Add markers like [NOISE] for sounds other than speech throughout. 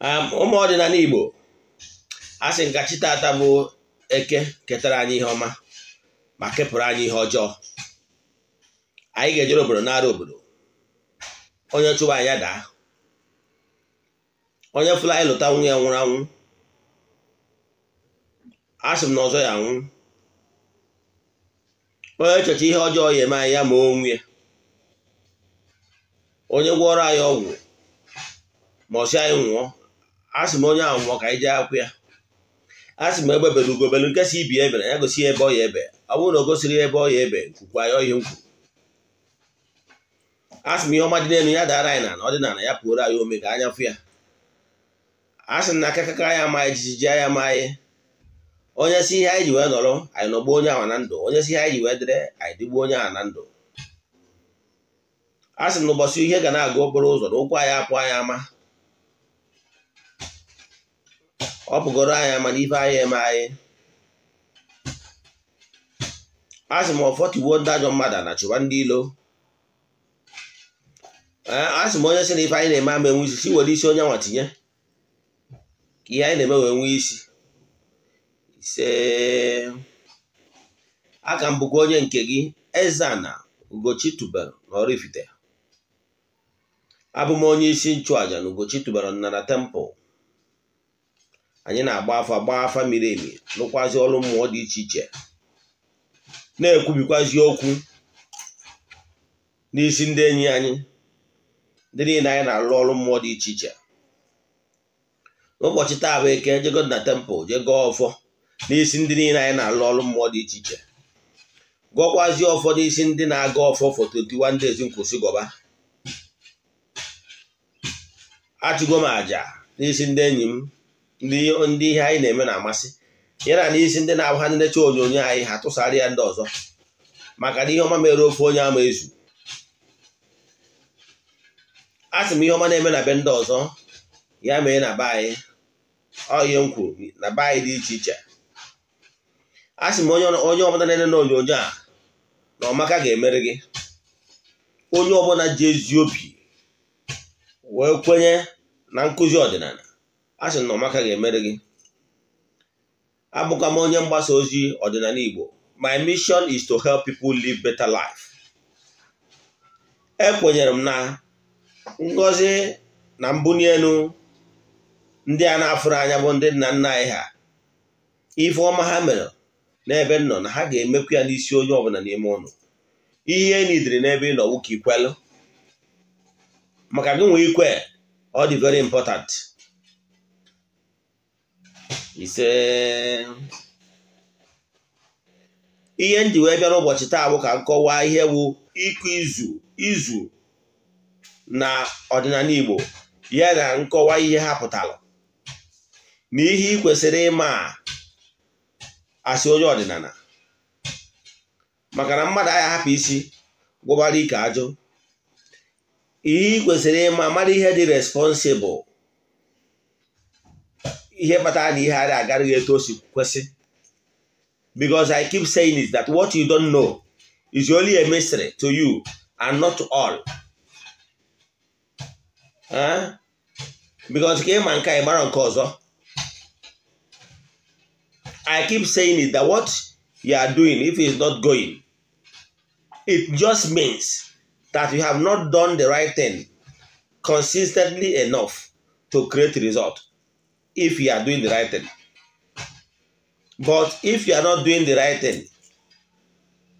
Um, ụmụ ọdịnala Igbo a sị nkachi tata bụ eke ketara anyị ihe ọma ma kepụrụ anyị ihe ọjọọ anyị ga-ejere obodo n'ara obodo onye chụwa anya daa onye fụla anyị lụta nwunye nwụrụ anwụ asị m na ọzọ ya nwụ onye echecha ihe ọjọọ ya eme anyị ya ma onwe ya onye gwọrọ anyị ọgwụ ma ọsị anyị nwụọ asị m onye ahụ ka anyị jee akwụ ya sị m egbe bere ugobelu nke si ibi ebere ya gosi ebe ọ ya ebe ọ bụrụ na o gosiri ebe ọ ya ebe nkwukwa ya ọhịa nkwu asị m ihe ọma dị n'elu ya dara anyị na ọdịnala ya pụoro anyị ome ka anya fụ ya asị na akakaka anyị amaghị jijiji anyị amaghị onye si ihe anyị ji wee nọrọ anyị nọgbuo onye ahụ na ndụ onye si ihe anyị ji wee dịrị anyị dịgbuo onye ahụ na ndụ asị na ụbọchị ihe ga na-aga okporo ụzọ na ụkwụ anyị apụ anyị ama ọ bụgoro anya mana ife anyị eme anyị asị m ọfọtiwo ndị ajọ mmadụ a na chụba ndị ilo asị m onye sị na ife anyị na-eme ama enwe isi si were isi onye nwa tinye ka ihe anyị na-eme wee nwee isi ise aka m bụkwa onye nke gị eze Ugochi tubelu na ifite abụ m onye isi nchụaja na Ugochi tubelu na Nnara temple anyị na-agba afa gbaa afa miri emi lụkwazi ọrụ mmụọ dị iche iche na-ekwubikwazi okwu n'isi ndị enyi anyị ndị niile anyị na-alụ ọrụ mmụọ dị iche iche n'ụbọchị taa bụ eke jego na tempụl jego ọfọ n'isi ndị niile anyị na-alụ ọrụ mmụọ dị iche iche gọkwazi ọfọ n'isi ndị na-aga ọfọ foto 21 days nkwụsị gọba achụgo m àjà n'isi ndị enyi m ndị ihe anyị na-eme na-amasị ya na isi ndị na-abụ ha ndị na onyonyo anyị ha tụsara ya ndị ọzọ maka na ihe ọma mere ofe onye ama ezu a sị m ihe ọma na-eme na be ndị ọzọ ya mee na be anyị ọ ihe na be anyị dị iche iche a sị m onye ọbụla na-ele na onyonyo a na ọmaka ga emere gị onye ọbụla ji ezi obi wee kwenye na nkụzi ọdịnala a sị na ụmụaka ga-emere gị abụkwa m onye mgbasa ozi ọdịnala Igbo my mission is to help people live better life ekwenyere m na ngọzi na mbunye elu ndị a na-afụrụ anya bụ ndị nna nna anyị ha ife ọma ha mere n'ebe nọ na ha ga-emekwu ya n'isi onye ọbụla n'ime ụnụ ihe e n'ebe ị nọ ka ikwelụ maka gị nwee ikwe ọ dị very important ise ihe ndị wee bịara ụbọchị taa bụ ka nkọwa ihe bụ ịkụ izu izu na ọdịnala Igbo ya na nkọwa ihe ha pụtara na ihe ị kwesịrị ịma asị onye ọdịnala maka na mmadụ agha hapụ isi gwụbara ike ajụ ihe ị kwesịrị ịma mara ihe dị responsibụl ihe kpatara na ihe a agaraghị eto o si kwesị because I keep saying is that what you don't know is only a mystery to you and not to all. because ka ịma nke ịmara nke ọzọ I keep saying is that what you are doing if is not going it just means that you have not done the right thing consistently enough to create result. if you are doing the right But if you are not doing the right thing,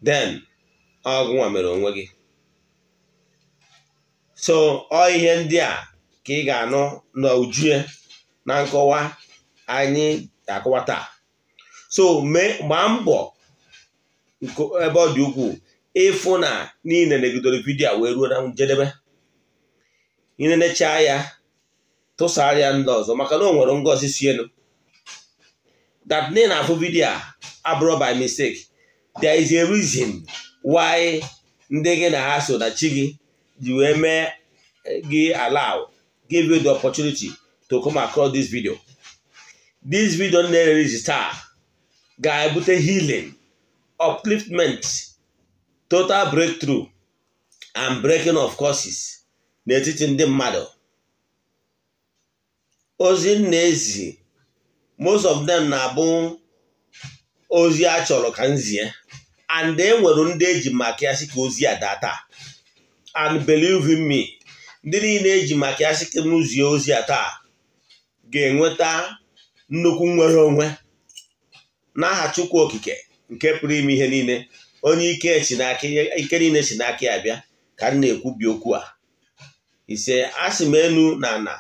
then ọgwụnwa mere onwe gị. So ọ ihe ndị a ka ị ga-anụ n'ojue na nkọwa anyị akọwa taa. So gbaa mbọ ebe ọ dị ukwuu ịfụ na niile na-eguzosororoku ebidoro vidiyo wee ruo na njedebe enecha ya tụsara ya ndị ọzọ maka na ọ nwere ngozi si elu that name na-afụ abụrụ by mistake there is a reason why ndị gị na ha so na chi gị ji wee mee eh, gị allow give you the opportunity to come across this video this video na-erezi ga-ebute healing upliftment total breakthrough and breaking of courses n'etiti ndị mmadụ ozi m na-ezi most of them na-abụ ozi a chọrọ ka nzie and e nwere ndị eji maka ya ka ozi a taa and believe me ndị niile eji maka ya ka m ozi a taa ga-enweta nnukwu nnwere onwe n'aha Chukwu Okike nke pụrụ ime ihe niile onye ike nile niile si n'aka ya bịa ka m na-ekwubi okwu a ise asị m enu na ana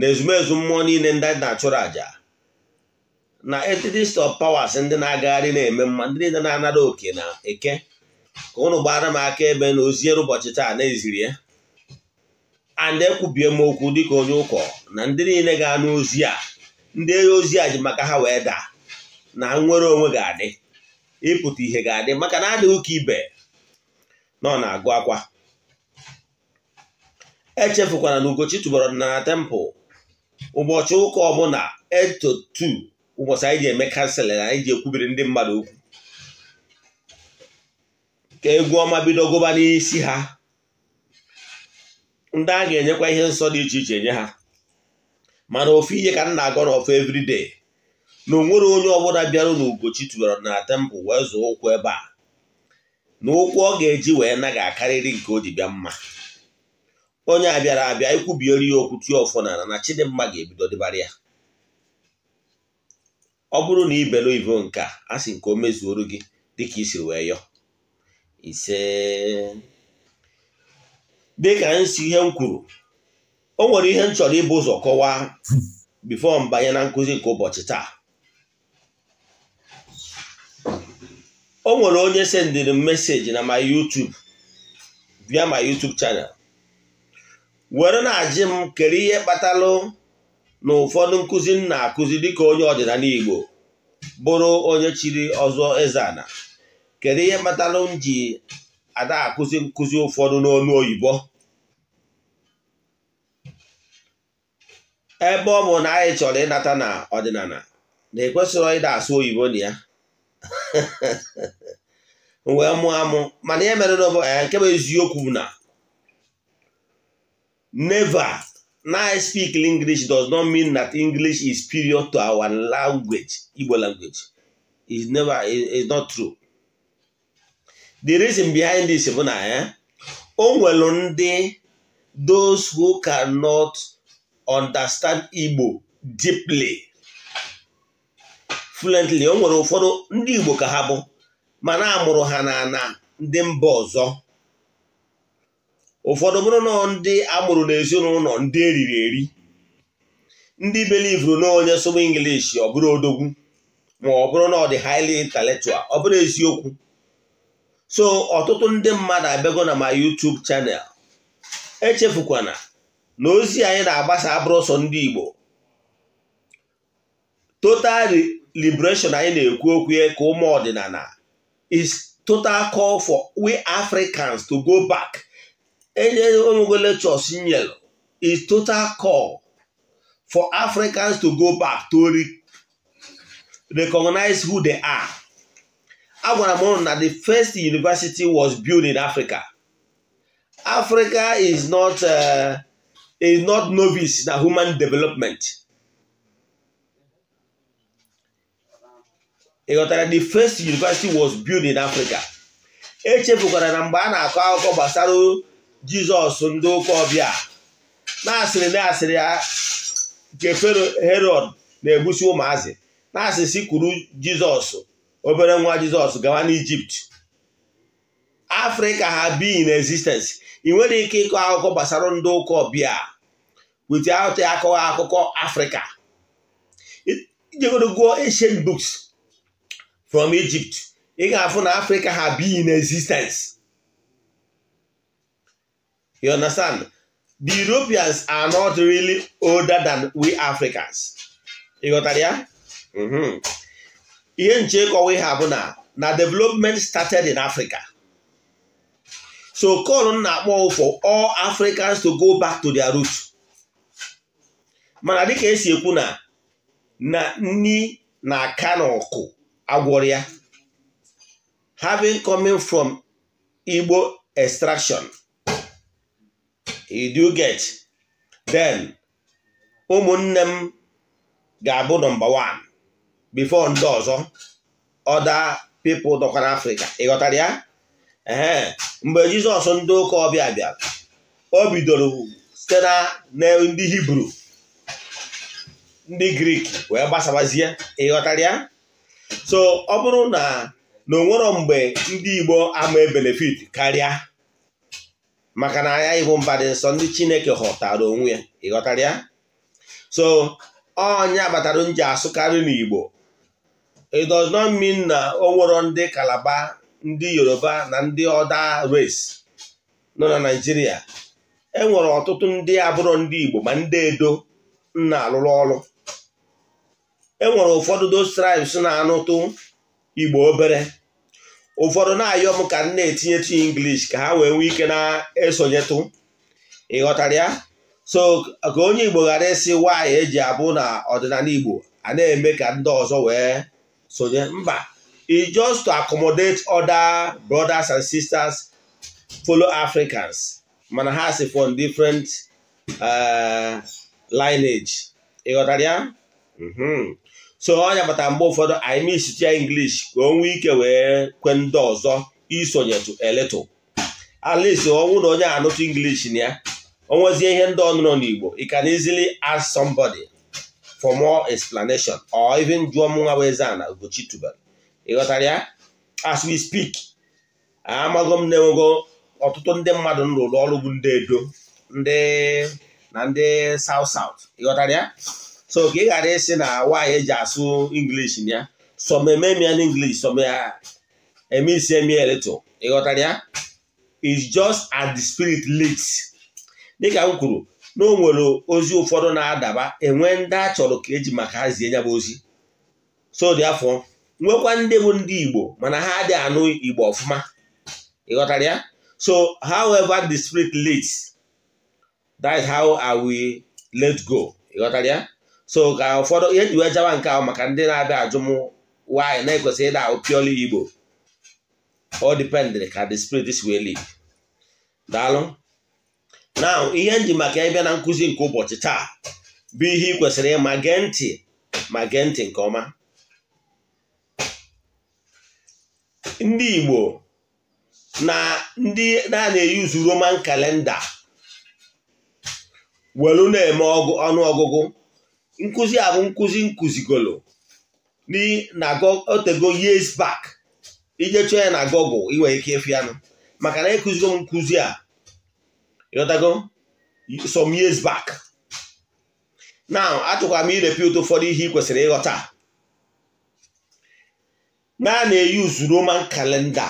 na ezumezu mmụọ niile ndị na-achụrụ àjà na entities of powers ndị na-agagharị na-eme mma ndị niile na-anara oke na eke ka ụnụ gbara m aka ebe na oziere ụbọchị taa na-eziri ya and ekwubie m okwu dịka onye ụkọ na ndị niile ga-anụ ozi a ndị ozi a ji maka ha wee daa na nnwere onwe ga-adị ịpụta ihe ga-adị maka na adịghị ụka ibe nọ na-agụ akwa echefukwana na Ugochi tụbara na tempụl ụbọchị ụka ọbụla eto 2 ụbọchị anyị ji eme kanselin anyị ji ekwubiri ndị mmadụ okwu ka egwu ọma bido gụba n'isi ha ndị a ga-enyekwa ihe nsọ dị iche iche nye ha mana ofu ihe ka m na-agọ n'ọfụ everyday na onwere onye ọbụla bịara n'ugochi tubara na tempụl wee zụọ ụkwụ ebe a na ụkwụ ọ ga-eji wee naghị akarịrị nke o ji bịa mma onye a bịara abịa ikwubiere ya okwu tie ọfọ n'ala na chidimma ga-ebido dịbara ya ọ bụrụ na ibelu ivo nke a sị nke o mezuoru gị dịka isiri wee yọ ise dịka nsi ihe m kwuru o nwere ihe m chọrọ ịbụ ụzọ kọwaa bifo mbanye na nkụzi nke ụbọchị taa o nwere onye sendịrị m meseji na my YouTube bịa my YouTube channel were na-ajị m kere ihe kpatalụ na ụfọdụ nkụzi nna na-akụzi dịka onye ọdịnala Igbo bụrụ onye chiri ọzọ eze ana kere ihe kpatalụ m ji ada akụzi nkụzi ụfọdụ n'olu oyibo ebe ọ bụ na anyị chọrọ ịnata na ọdịnala na ekwesịrị ịda asụ oyibo na ya [LAUGHS] wee mụọ mana ihe mere eh, nke bụ eziokwu na Never. Now I speak English does not mean that English is superior to our language, Igbo language. is never, is not true. The reason behind this bụ na ya eh, o nwere ndị those who cannot understand Igbo deeply fluently onwere nwere ụfọdụ ndị Igbo ka ha bụ mana amụrụ ha na na ndị mba ọzọ ụfọdụ bụrụ na ndị amụrụ n'ezinụlọ ndị eriri eri ndị belivuru na onye sụba English ọ bụrụ odogwu ma ọ bụrụ na ọ dị highly intellectual ọ bụrụ eziokwu so ọtụtụ ndị mmadụ abịago na ma YouTube channel echefukwana na ozi anyị na-agbasa abụrụ sọ ndị Igbo total liberation anyị na-ekwu okwu ka ụmụ ọdịnala is total call for we Africans to go back enye omego lectures nyere is total call for Africans to go back to re recognize who they are. Agwara m na the first university was built in Africa. Africa is not uh, is not novice na human development. Ịghọtara the first university was built in Africa. Echefukwara na mgbe a na-akọ akụkọ gbasara jizọs ndị ụka ọbịa na-asịrị na-asịrị a nke fero herod na-egbusi ụmụazị na asịsị kwuru jizọs obere nwa jizọs gawa n'ijipt afrịka ha bi in existence ị nwere ike ịkọ akụkọ gbasara ndị ụka ọbịa wit out akọwa akụkọ afrịka ijegodogo ancient books from egypt ị ga-afụ na afrịka ha bi in existence You understand? The Europeans are not really older than we Africans. Ị ghọtara ya? Ihe nche ha bụ na na development started in Africa. So call na-akpọ for all Africans to go back to their roots. Mana dịka esi ekwu na na nni na-aka na ọkụ agwọrọ Having coming from Igbo extraction. you get then ụmụnne m ga-abụ nọmba one bifo ndị ọzọ ọda people dọkwara Afrịka ịghọtara ya ee mgbe Jizọs ndị ụka ọbịa bịara o bidoro site na ndị Hibru ndị Grik wee gbasabazie ịghọtara ya so ọ bụrụ na na onwero mgbe ndị Igbo ama e benefit karịa maka na ya ịbụ mba dị nsọ ndị chineke ghọtara onwe ya ịghọtara ya so onye batara nji asụkarị n'igbo it does not mean na o nwere ndị kalaba ndị yoruba na ndị ọda race nọ na naijiria enwere ọtụtụ ndị abụrụ ndị igbo ma ndị edo nna alụrụ ọrụ enwere ụfọdụ those tribes na-anụtụ igbo obere ụfọdụ na-ayọ m ka m na-etinyetụ English ka ha wee nwee ike na-esonyetụ ịghọtara ya so ka onye Igbo ghara esi nwaanyị eji abụ na ọdịnala Igbo a na-eme ka ndị ọzọ wee sonye mba i e just to accommodate other brothers and sisters follow Africans mana ha si from different uh, lineage ịghọtara ya mm-hmm. so ọ ya mgbe ụfọdụ anyị misitia English ka o nwee ike wee kwe ndị ọzọ isonyetu eletu ọ ọnwụ na onye anụtụ inglish na ya onwezie ihe ndị ọnụnọ n'Igbo you can easily ask somebody for more explanation or even jụọ nwa bụ eze na Ugochi tubelu ịghọtara ya as we speak amago m na-enwego ọtụtụ ndị mmadụ nrụrụ ọrụ bụ ndị edo ndị na ndị South South ịghọtara ya so ka ị ghara ịsị na nwaanyị eji asụ English na ya sọmememia na English sọmeme ah, isi ịghọtara ya is just as the spirit leads dịka m kwuru na o nwere ozi ụfọdụ na-adaba enwe ndị a chọrọ ka eji maka ha zie nyabụ ozi so dị afọ nwekwa ndị bụ ndị Igbo mana ha adịghị anụ Igbo ọfụma ịghọtara ya so however the spirit leads that is how I will let go ịghọtara ya so ka ụfọdụ ihe njiwe jawa nke ahụ maka ndị na-abịa ajụ m nwaanyị na-ekwesị ịda ahụ pioli igbo ọ dipendịrị ka the spirit si wee live daalụ na ihe nji maka ịbịa na nkụzi nke ụbọchị taa bụ ihe ị kwesịrị ịma gee ntị ma gee ntị nke ọma ndị igbo na ndị na-eyuzu roman kalenda welu na-eme ọnụọgụgụ nkụzi a bụ nkụzi nkụzigolo otego years back ije chọọ ya na Google ị nwere ike ịfụ maka na ịkụzigo m nkụzi a ịghọtago some years back now achọkwara m irepute ụfọdụ ihe ị kwesịrị ịghọta na na-eyuzu Roman kalenda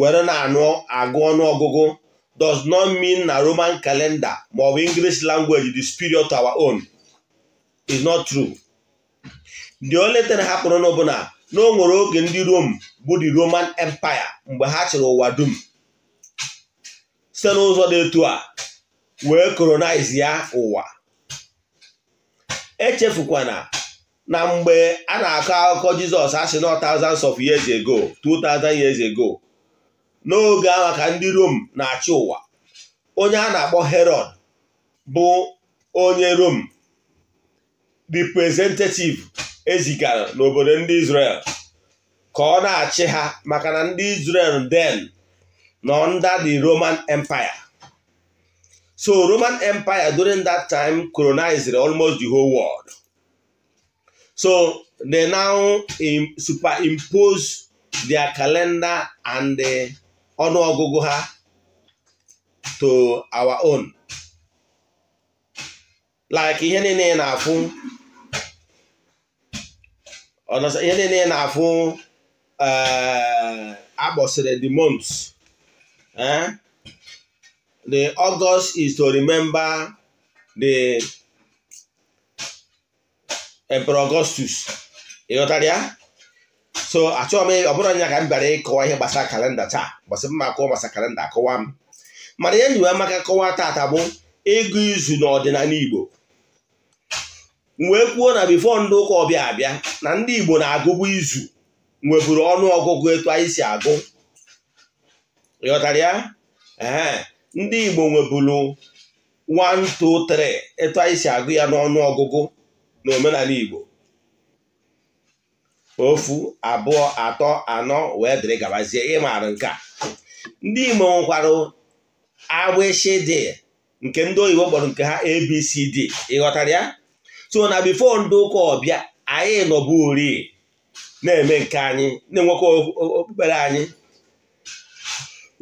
were na-anụ agụ ọnụọgụgụ does not mean na Roman calendar maọbụ English language the superior of our own is not true the only thing ha na na o nwere oge ndị Rome bụ the Roman Empire mgbe ha chịrị ụwa dum site n'ụzọ dị etu a wee colonize ya ụwa echefukwana na mgbe a na-akọ akụkọ Jizọs asị nọ thousands of years ago 2000 years ago n'oge ahụ ka ndị Rom na-achị ụwa onye a na-akpọ Herod bụ onye Rom representative ezigara n'obodo ndị Israel ka ọ na-achị ha maka na ndị Israel den nọ under the Roman Empire so Roman Empire during that time colonized almost the whole world so they now superimpose their calendar and the eh, ọnụọgụgụ ha to our own like ihe niile na-afụ ọnọsọ ihe niile na-afụ eh, akpọsịrị the months eh? the August is to remember the Emperor Augustus ịghọtara ya so achọghị m ọ bụrụ anya ka m bịara ịkọwa ihe gbasara kalenda taa gbasị mma akọwa gbasara kalenda akọwa m mana ihe nyiwe maka kọwa taata bụ ịgụ izu n'ọdịnala Igbo nwekwuo wee kwuo na bifo ndị ụka ọbịa abịa na ndị Igbo na-agụbu izu nweburu ọnụ etu anyị si agụ ịghọtara ya ee ndị Igbo nweburu 1 2 3 etu anyị si agụ ya n'ọnụ ọgụgụ na omenala Igbo ofu abụọ atọ anọ wee dịrị gabazie maara nke a ndị Igbo nwekwarụ agbịshị dị nke ndị oyibo kpọrọ nke ha ABCD ịghọtara ya so na bifo ndị ụka ọbịa anyị nọbụ ori na-eme nke anyị na-enwekwa okpukpere anyị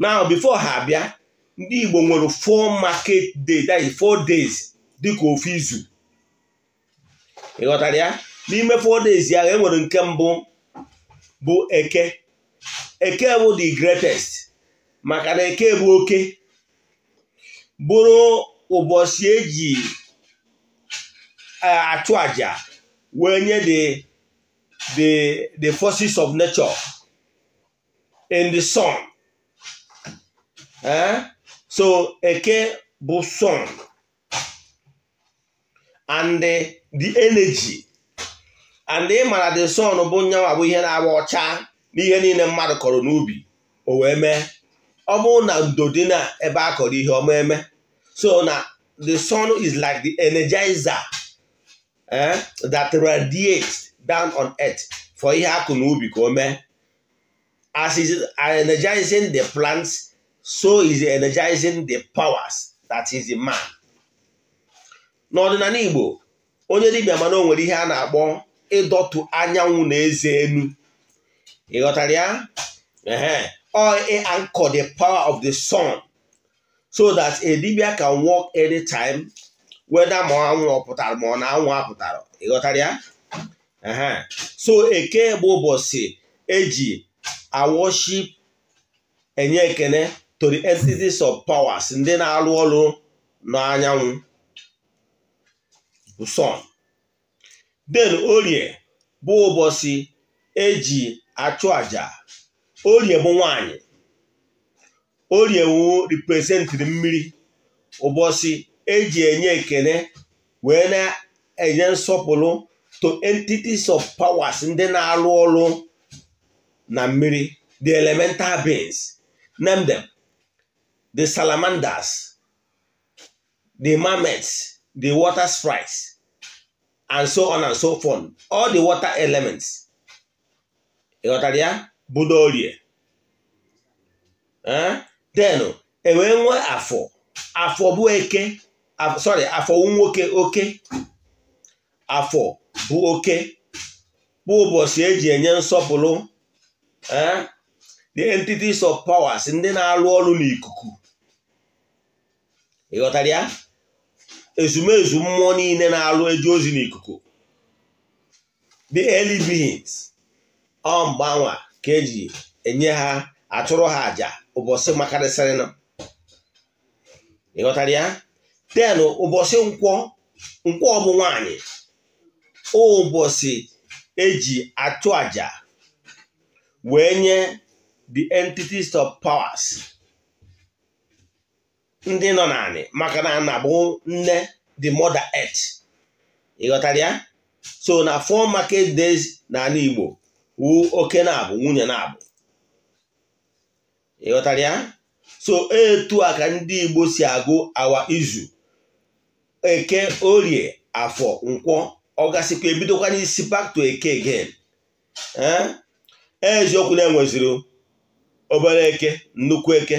now bifo ha abịa ndị Igbo nwere four market day is four days dịka ofu izu ị ya n'ime four days ya enwere nke mbụ bụ eke eke bụ the greatest maka na eke bụ oke bụrụ ụbọchị eji achụ àjà wee nye the the the forces of nature in the sun eh? so eke bụ sun and the, the energy and ị mara the sun bụ nyawa bụ ihe na-agba ọcha n'ihe niile mmadụ kọrọ n'ubi o wee mee ọ bụrụ na ndo ebe a kọrọ ihe ọma eme so na the sun is like the energizer Eh? that radiate down on earth for ihe akụ na ubi ka o mee as is energizing the plants so is energizing the powers that is in man. n'ọdịnala Igbo onye dibịa mana o nwere ihe a na-akpọ ịdọtụ anyanwụ na eze enu ị ghọtara ya ehe anchor the power of the sun so that a dibia can work anytime weda ma anwụ ọ pụtara ma ọ na anwụ apụtara ịghọtara ya so eke bụ ụbọchị eji awoship enye ekene to the entities of powers ndị na alụ ọrụ n'anyanwụ sun den orie bụ ụbọchị eji achụ aja orie bụ nwanyị orie wu represent mmiri ụbọchị eji enye ekele wee na-enye nsọpụrụ to entities of powers ndị na-arụ ọrụ na mmiri the elemental beings name them the salamanders the marmots the water sprites and so on and so forth all the water elements ịghọtara ya budo orie then e wee nwee afọ afọ bụ eke sorry afọ nwoke oke afọ bụ oke bụ ụbọchị eji enye nsọpụrụ the eh, entities of powers ndị na-alụ ọrụ n'ikuku ịghọtara ya ezumezu mmụọ niile na-alụ eji ozi n'ikuku the early beings ọ mgbanwa ka eji enye ha atụrụ ha àjà ụbọchị makarịsịrịnụ ịghọtara ya den ụbọchị nkwọ nkwọ nwanyị ụbọchị eji achụ aja wee nye the entities of powers ndị nọ naanị maka na na nne the mother earth ịghọtara ya so na four market days n'ala Igbo wu oke na-abụ nwunye na-abụ ịghọtara ya so etu a ka ndị Igbo si agụ awa izu eke orie afọ nkwọ ọ gasịkwa ebidokwa n'isi back to eke again eh? e, eziokwu na-enweziri obere eke nnukwu eke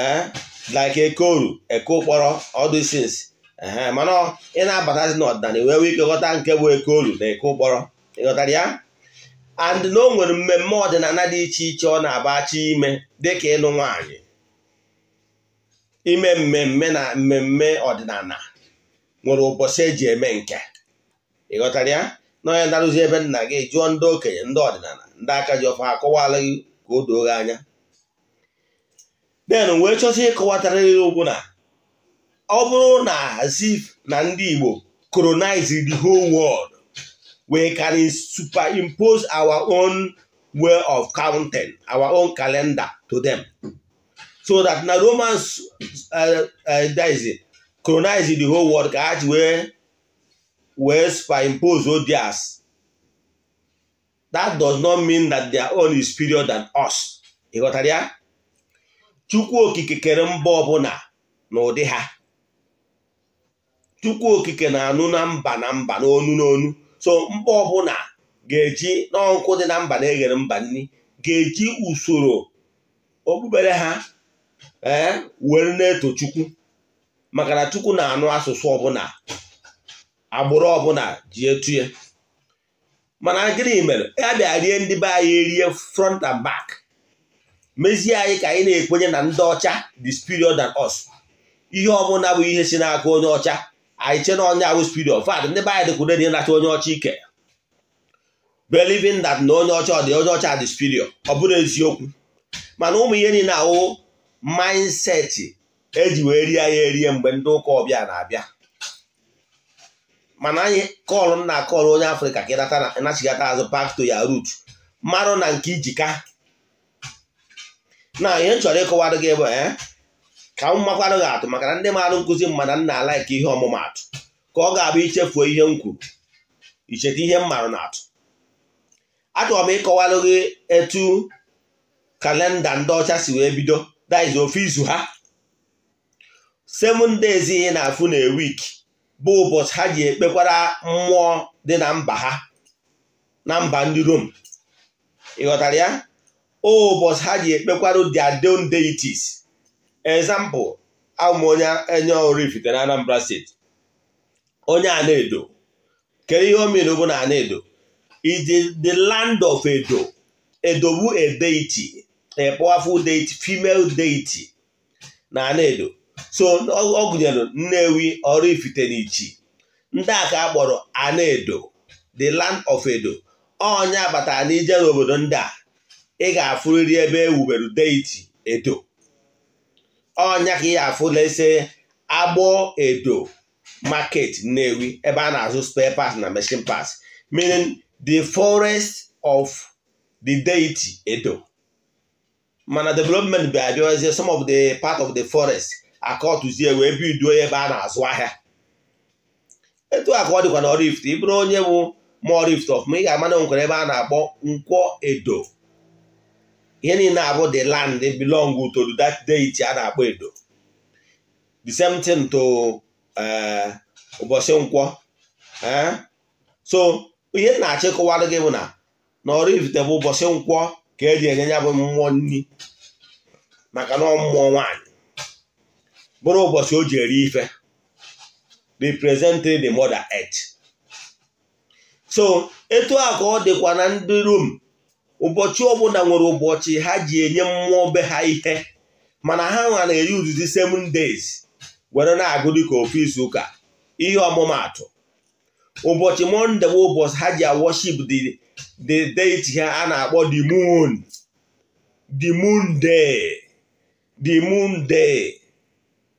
eh? like eke oru eke ụkpọrọ all these eh, mana ị na-abatazi n'ọdịnala wee nwee ike ghọta nke bụ eke oru na eke ụkpọrọ ịghọtara ya and na o nwere mmemme ọdịnala dị iche iche ọ na-abacha ime dịka ịlụ nwaanyị ime mmemme na mmemme ọdịnala nwere ụbọchị eji eme nke ị ghọtara ya na onye narụzi ebe nna gị jụọ ndị okenye ndị ọdịnala ndị aka ji ọfa akọwala gị ka o doo anya den wee chọsị ịkọwatara gị okwu na ọ bụrụ na zif na ndị Igbo colonize the whole world we can superimpose our own way of counting, our own calendar to them. So that na Romans uh, uh, colonize the whole world ka ha ji wee wee superimpose odias that does not mean that their own is superior than us ị ghọtara ya chukwu okike kere mba ọbụla n'ụdị ha chukwu okike na-anụ na mba na mba n'onu n'onu so mba ọbụla ga-eji n'ọkụ dị na mba na-eghere mba nri ga-eji usoro okpukpere ha ee eh, were na-eto chukwu maka na Chukwu na-anụ asụsụ ọbụla agbụrụ ọbụla ji etu ya mana gịnị mere ya bịa rie ndị be anyị erie front and back mezie anyị ka anyị na-ekwenye na ndị ọcha the superior than us ihe ọbụla bụ ihe si n'aka onye ọcha anyị che na onye awụ superior fat ndị be anyị dịkwude dị nacha onye ọcha ike belivin that na onye ọcha dị onye ọcha dị superior ọ bụrụ eziokwu mana ụmụ ihe niile ahụ mindset eji wee rie ya erie mgbe ndị ụka ọbịa na-abịa mana anyị kọlụ m na akọlụ onye afrịka ka ịnachigata azụ back to ya rut mmanụ na nke ijika na ihe m chọrọ ịkọwarụ gị bụ eh, ka m makwarụ gị atụ maka na ndị marụ nkụzi m nna m na ka ihe ọmụmatụ ka ọ ga-abụ ichefuo ihe m kwuru icheta ihe m marụ na atụ achọrọ m ịkọwarụ gị etu kalenda ndị ọcha si wee bido daiz ofe izu ha seven days ị na-afụ na week bụ ụbọchị ha ji ekpekwara mmụọ dị na mba ha na mba ndị Rom ịghọtara ya ụbọchị ha ji ekpekwara their own deities example amụ onye enye Oraifite na Anambra steeti onye Ana-Edo kedu ihe o bụ na ana is the land of Edo edogbu a deity a deity female deity na so ọ gụnyere Nnewi Oraifite na n'ichi ndị a ka a edo the land of Edo ọnya batara n'ije n'obodo ndị a ị ga-afụrịrị ebe ewubere deiti Edo ọnya ka ị ga-afụla ise agbọ Edo market Nnewi ebe a na-azụ spare parts na machine parts meaning the forest of the deity Edo mana development bụ abịazie some of the part of the forest akọtụzie wee biduo ebe a na-azụ ahịa etu a ka ọ dịkwa n'ọrụ ị bụrụ onye bụ mọọ rift of ị ga amana na nkwere ebe a na-akpọ nkwọ edo ihe niile abụ the land belong to that a na-akpọ edo the same thing to eh, ụbọchị nkwọ eh? so ihe na-achịkọwarụ gị bụ na n'ọrụ ifite bụ ụbọchị nkwọ ka eji enye ya bụ mmụọ nri maka na ọ mmụọ nwaanyị bụrụ ụbọchị o ji eri ife representing the mother earth so etu a ka ọ dịkwa na ndị rom ụbọchị ọbụla nwere ụbọchị ha ji enye mmụọ be ha ihe mana ha nwa na-eri 7 seven days were na-agụ dịka ofu izu ụka ihe ọmụmaatụ ụbọchị monde bụ ụbọchị ha ji worship the deity ha a na-akpọ the moon the moon day the moon day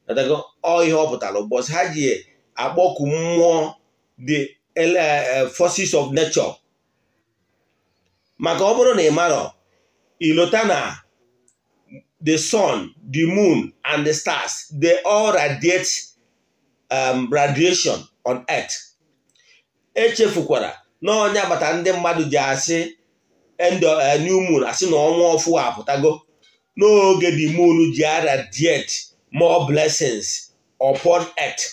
ọ ihe ọ pụtara ha ji akpọku mmụọ the eh, forces of nature maka ọ bụrụ na ị marọ ilota na the sun the moon and the stars they all radiate um, radiation on earth echefukwara na onye agbata ndị mmadụ ji asị eh, new moon asị na ọnwa ọfụ apụtago n'oge the moon ji aradiate more blessings upon earth.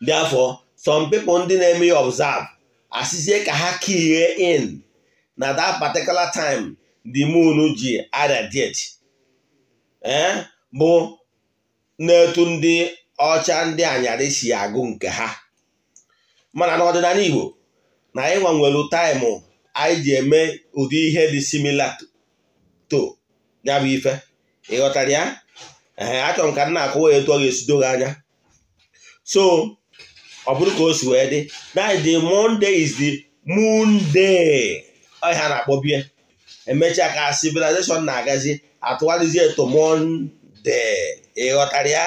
Therefore, some people ndị na-eme ya observe asịzie ka ha kihe in na that particular time the moon ji irradiate ee eh? bụ na-etu ndị ọcha ndị anyarị si agụ nke ha mana n'ọdịnala Igbo na anyị gbanwelu taịmụ anyị ji eme ụdị ihe dị similar to ya bụ ife ịghọtara ya ee achọrọ m ka nna akụwa ya etu ọ ga-esido gị anya so ọ bụrụ ka o si wee dị the Monday is the moon day na-akpọ bie emechaa ka civilization na-agazi atụgharịzie eto monde ịghọtara ya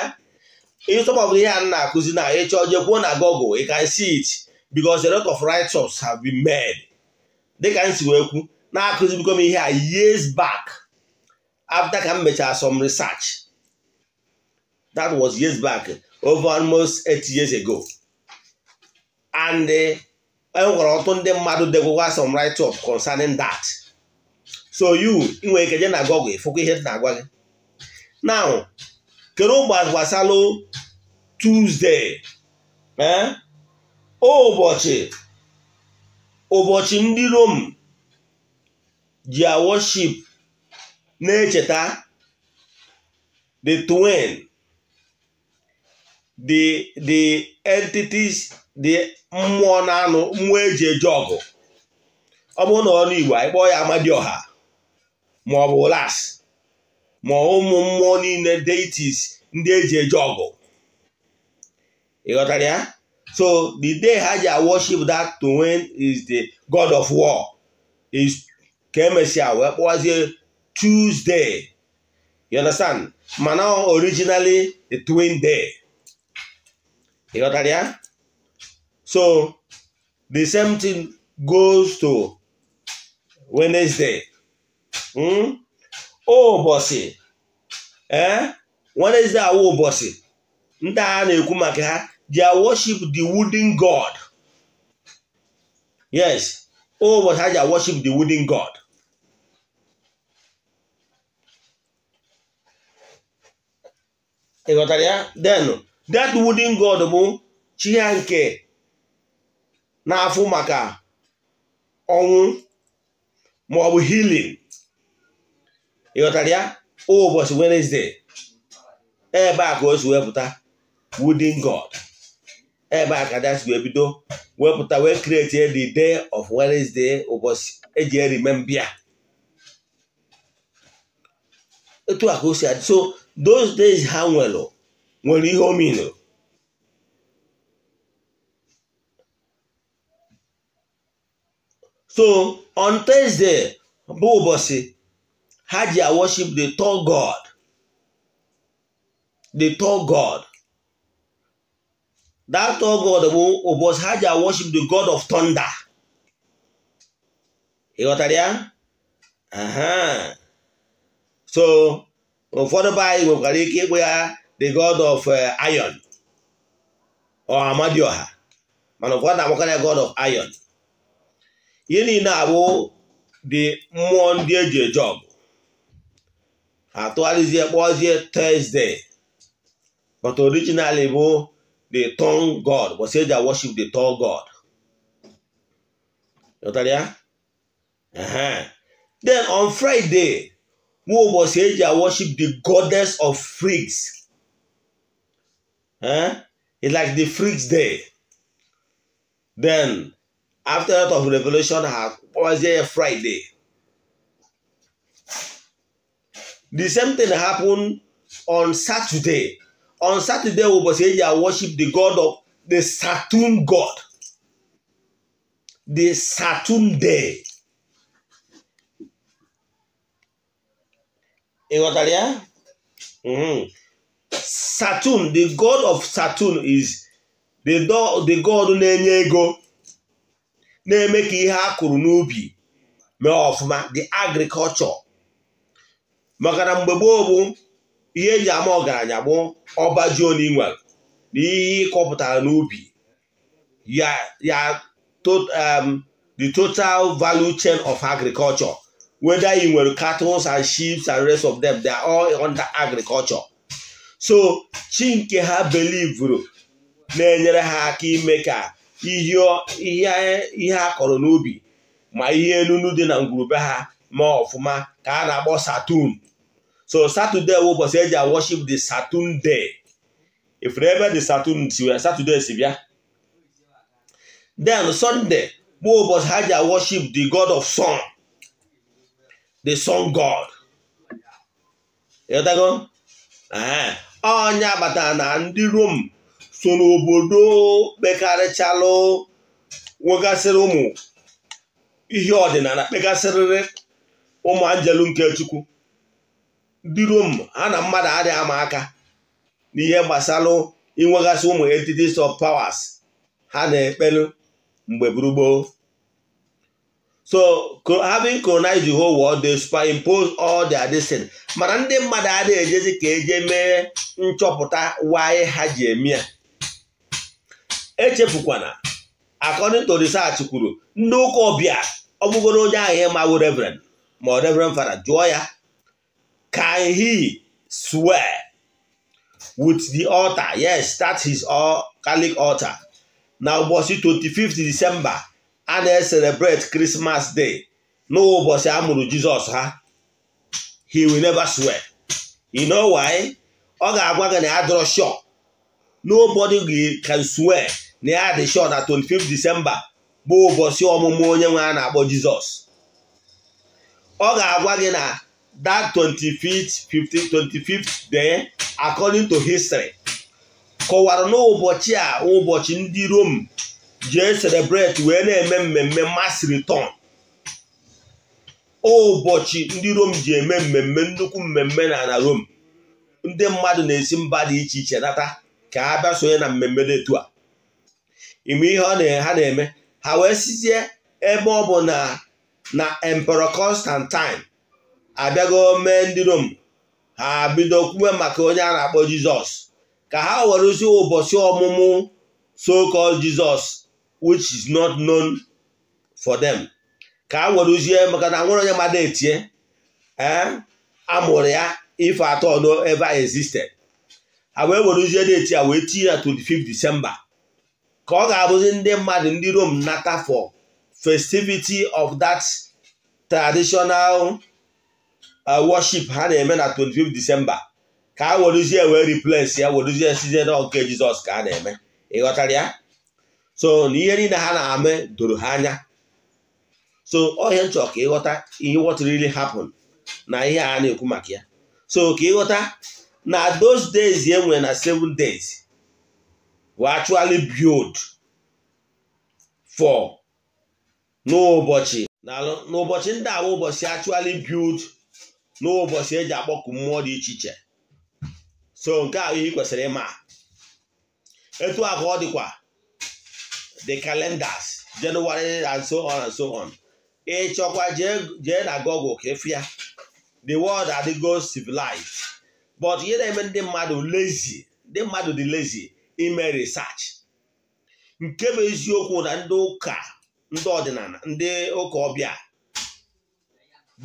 ịtọpọbụ ihe a na-akụzi na ịchọ jekwuo na Google ị can see it because the lot of write-ups have been made dịka m si wee kwu na-akụzi bikom ihe a years back after ka m mechara some research That was years back, over almost eight years ago. And eh, e nwere ọtụtụ ndị mmadụ degwekwa some write-up concerning that. So you nwere ike je na Google fụkwa ihe na-agwa gị. Now, kedu gbasara Tuesday eh? ụbọchị ụbọchị ndị Rom ji worship na-echeta the twin the the entities the mmụọ na anụ mmụọ eji eje ọgụ ọ bụrụ na ọnụ Igbo anyị kpọọ ya ma ọ bụ las ma ụmụ mmụọ niile deities ndị eji eje ọgụ ịghọtara ya so the day ha ji worship that to win is the god of war is ka emesịa wee kpọwazie Tuesday you understand mana originally the twin day ị ghọtara ya so the same thing goes to Wednesday hmm? oh bossy eh? wednesday ndị bossy na-ekwu maka ha worship the wooden god yes oh ha ji worship the wooden god ị ghọtara ya denu that wooden god bụ chi ya nke na-afụ maka ọnwụ maọbụ ọ bụ healing ịghọtara ya ụbọchị Wednesday ebe a ka o si wepụta wooden god ebe a ka dasi wee bido wepụta wee create the day of Wednesday ụbọchị eji erimembia etu a ka o si adị so those days ha nwere nwere ihe o so on Thursday bụ ụbọchị ha ji worship the tall God the tall God that tall God bụ ụbọchị ha ji worship the God of thunder ị ghọtara ya so ụfọdụ be anyị nwekwara ike ịkpụ ya the god of uh, iron or Amadioha mana ụfọdụ na ya god of iron ihe niile abụ dị mmụọ ndị eji eje ọgụ atụgharịzie kpọzie Thursday but originally bụ the tongue god bọsị eji worship the tongue god Ghọtara uh-huh. then on Friday nwa ụbọchị eji worship the goddess of freaks Eh? It's like the freaks there. Then, after that of Revelation, was there a Friday? The same thing happened on Saturday. On Saturday, we saying here worship the God of the Saturn God. The Saturn day. that, yeah? Mm -hmm. Saturn the god of Saturn is the the god na-enye ego na-eme ka ihe a kụrụ n'ubi mee ọfụma the agriculture maka na mgbe gboo bụ ihe eji ama ọgaranya bụ ọba ji onye na ihe ịkọpụtara n'ubi ya ya um, the total value chain of agriculture whether you nwere cattle and sheep and rest of them they are all under agriculture so chi nke ha belivuru na-enyere ha aka ime ka ihe a kọrọ n'obi ma ihe enunu dị na ngwurube ha ma ọfụma ka a na-akpọ Saturn so Saturday ụbọchị eji worship the Saturn day ifuru ebe the Saturn si wee Saturday si bịa den Sunday bụ ụbọchị ha ji worship di god of sun the sun god onye kpatara na ndị rom so n'obodo kpekarịchalụ nwegasịrị ụmụ ihe ọdịnala kpegasịrịrị ụmụ anjelu nke chukwu ndị rom ha na mmadụ adịghị ama aka n'ihe gbasalụ inwegasị ụmụ entities of powers ha na-ekpelu mgbe gburugburu so having colonized the whole world they superimpose all their destiny mana ndị mmadụ adịghị ejezi ka eje mee nchọpụta why ha ji eme ya echefukwana according to research kwuru ndị ụka ọbịa ọ onye ahụ ma mawụ reverend ma reverend fara jụọ ya can he swear with the altar yes start his Catholic altar na ụbọchị 25 December a na eserebret krismas day nụbọchị ụbọchị a mụrụ jizọs ha he will never swear you know why ọ ga-agwa gị na ya dọrọ shọ gị can swear na ya dị shọ na 25 disemba bụ ụbọchị ọmụmụ onye nwe a na-akpọ jizọs ọ ga-agwa gị na that 25th 25th day according to history kọwara n'ụbọchị a ụbọchị ndị rom jee celebrate wee na-eme mmemme mmasịrị tọn. ụbọchị ndị rom ji eme mmemme nnukwu mmemme na na rom ndị mmadụ na-esi mba dị iche iche nata ka a bịa sonye na mmemme dị a ime ihe ha na-eme ha wee sizie ebe ọ bụ na na emperọ Constantine abịago mee ndị rom ha bido kwuwe maka onye a na-akpọ jizọs ka ha werezie ụbọchị ọmụmụ so jizọs which is not known for them ka a maka na nwere onye mmadụ etie amụrụ ya eh, ife atọ no ever existed a wee were a wee tinye ya 25 December ka ọ ga-abụzi ndị mmadụ ndị Rome nata for festivity of that traditional uh, worship ha na-eme na 25 December ka a were uzie wee replace ya were uzie size nke Jizọs ka a na-eme ịghọtara ya so na ihe niile ha na-ame doro ha anya so ọhịa nchọ ka ịghọta ihe what really na ihe a na-ekwu maka ya so ka ịghọta na those days e nwere na seven days were actually build for n'ụbọchị n'ụbọchị ndị a ụbọchị actually build n'ụbọchị eji akpọku mmụọ dị iche iche so nke a ihe kwesịrị ịma etu a ka ọ dịkwa the calendars January and so on and so on ị chọkwa jee na Google ka the world adịgo civilized but ihe na-eme ndị mmadụ lazy ndị mmadụ dị lazy ime research nke bụ eziokwu na ndị ụka ndị ọdịnala ndị ụka ọbịa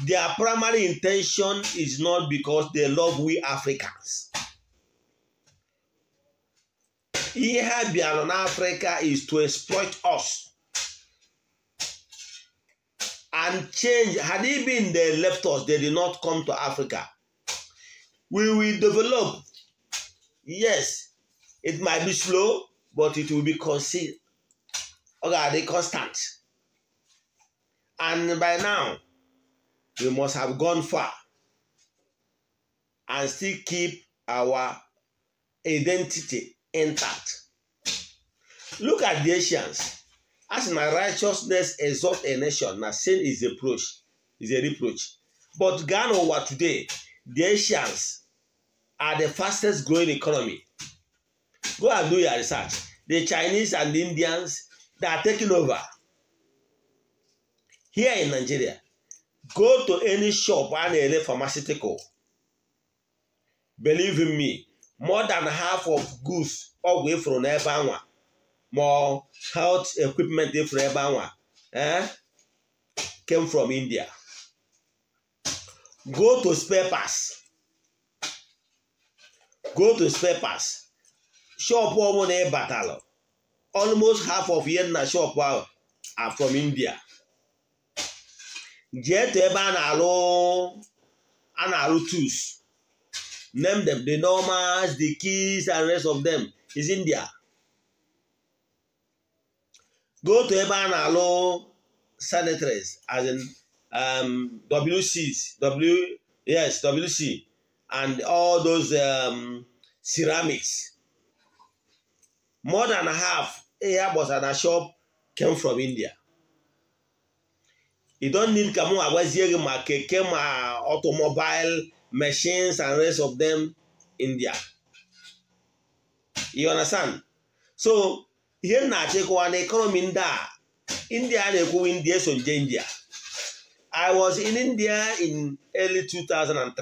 their primary intention is not because they love we Africans ihe been on n'afrịka is to exploit us and change had he been they left us they did not come to africa we will develop yes it might be slow but it will be concealed constant and by now we must have gone far and still keep our identity Entered. Look at the Asians. As my righteousness exalt a nation, na sin is a reproach, is a reproach. But Ghana over today, the Asians are the fastest growing economy. Go and do your research. The Chinese and the Indians, they are taking over. Here in Nigeria, go to any shop and a pharmaceutical. Believe in me, more than half of goods ọgwụ efuru n'ebe anwa ma health equipment efuru ebe anwa eh came from India go to spare go to spare shop ọbụla ị almost half of ihe na shop ahụ are from India jee to ebe a na arụ a na arụ tools Name them. The Normans, the Keys, and rest of them is India. Go to ebe a na-alụ senators as in um, WCs, W, yes, WC, and all those um, ceramics. More than half, yeah, bosana shop, came from India. You don need ka m agwazie gị ma keke ma automobile machines and rest of them in there. You understand? So ihe m na-achịkọwa na economy ndị a India na-ekwu India so nje India. I was in India in early 2003.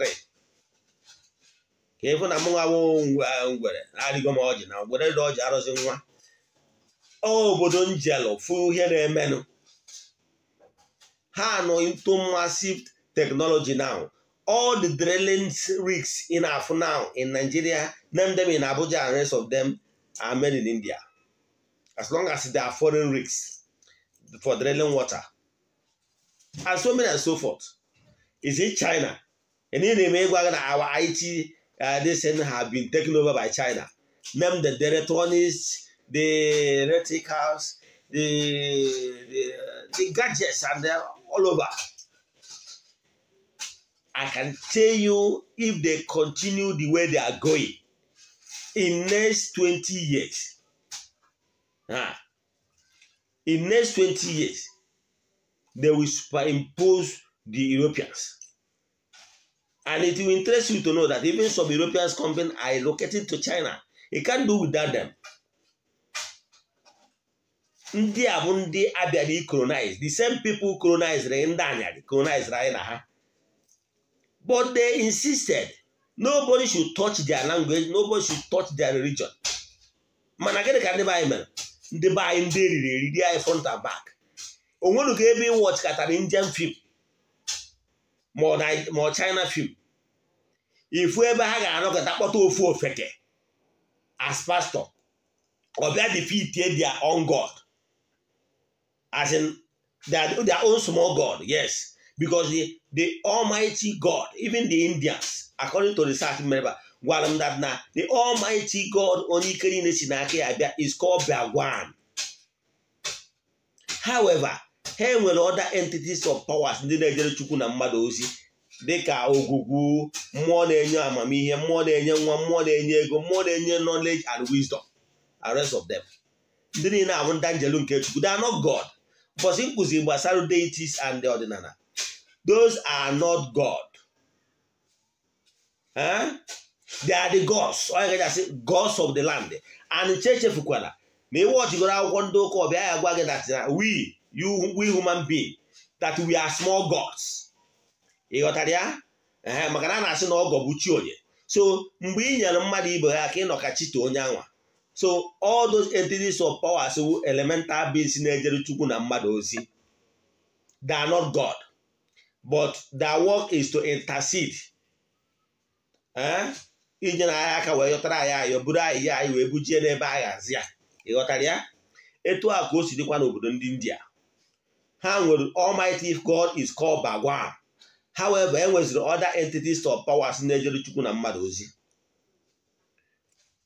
ka ịfụ na m nwa ngwere na-arịgo m ọjị na ngwere dị ọjị arụzi nwa obodo njelụ fụ ihe na-emenụ ha nọ into massive technology now. all the drilling rigs in Afu now in Nigeria, name them in Abuja and rest of them are made in India. As long as they are foreign rigs for drilling water. And so many and so forth. Is it China? And in America, our IT, uh, this thing have been taken over by China. Name the electronics, the reticles, the, the, uh, the gadgets, and they're all over. I can tell you if they continue the way they are going in next 20 years. ah In next 20 years, they will superimpose the Europeans. And it will interest you to know that even some European companies are located to China. It can't do without them. Ndị a bụ ndị abịara colonize the same people colonized Reina anyarị colonized anyị ha But they insisted nobody should touch their language nobody should touch their religion. mana gịnị ka ndị be anyị mere ndị ndị eri front and back Onwenuka ka ebe ịwọchikatara Indian film ma China film ifu ebe ha ga-anọkọta kpọta ofu ofeke as pastor ọbịa defeatie their own god as in their own small god yes because the, the almighty god even the indians according to south member gwara m that na the almighty god onye ike niile si n'aka ya bịa is called Bhagwan however ha nwere other entities of powers ndị na-ejere chukwu na mmadụ ozi dịka ogugu mmụọ na-enye amamihe mmụọ na-enye nwa mmụọ na-enye ego mmụọ na-enye knowledge and wisdom and rest of them ndị niile abụ ndị nke chukwu they are not god mbọsị nkụzi gbasara deities and the ọdịnala Those are not God. Huh? They are the gods. Ọ ga asị gods of the land. And chechefukwala ma ị wọchigoro akwụkwọ ndị ụka ọbịa ya gwa gị na we you we human being that we are small gods. Ị ghọtara ya? maka na a na-asị na ọgọ bụ chi onye. So mgbe ị nyere mmadụ ibe ha ka ị nọ chite onye anwa. So all those entities of power powers elemental beings na-ejere Chukwu na mmadụ ozi. They are not God. but their work is to intercede eh? iji na anyị aka wee yọtara anyị ayọ buru anyị ya anyị wee bujie n'ebe a ghazi ya ịghọtara ya etu a ka o si dịkwa n'obodo ndị India ha nwere Almighty God is called Bhagwan however e nweziri other entities of powers na-ejere Chukwu na mmadụ ozi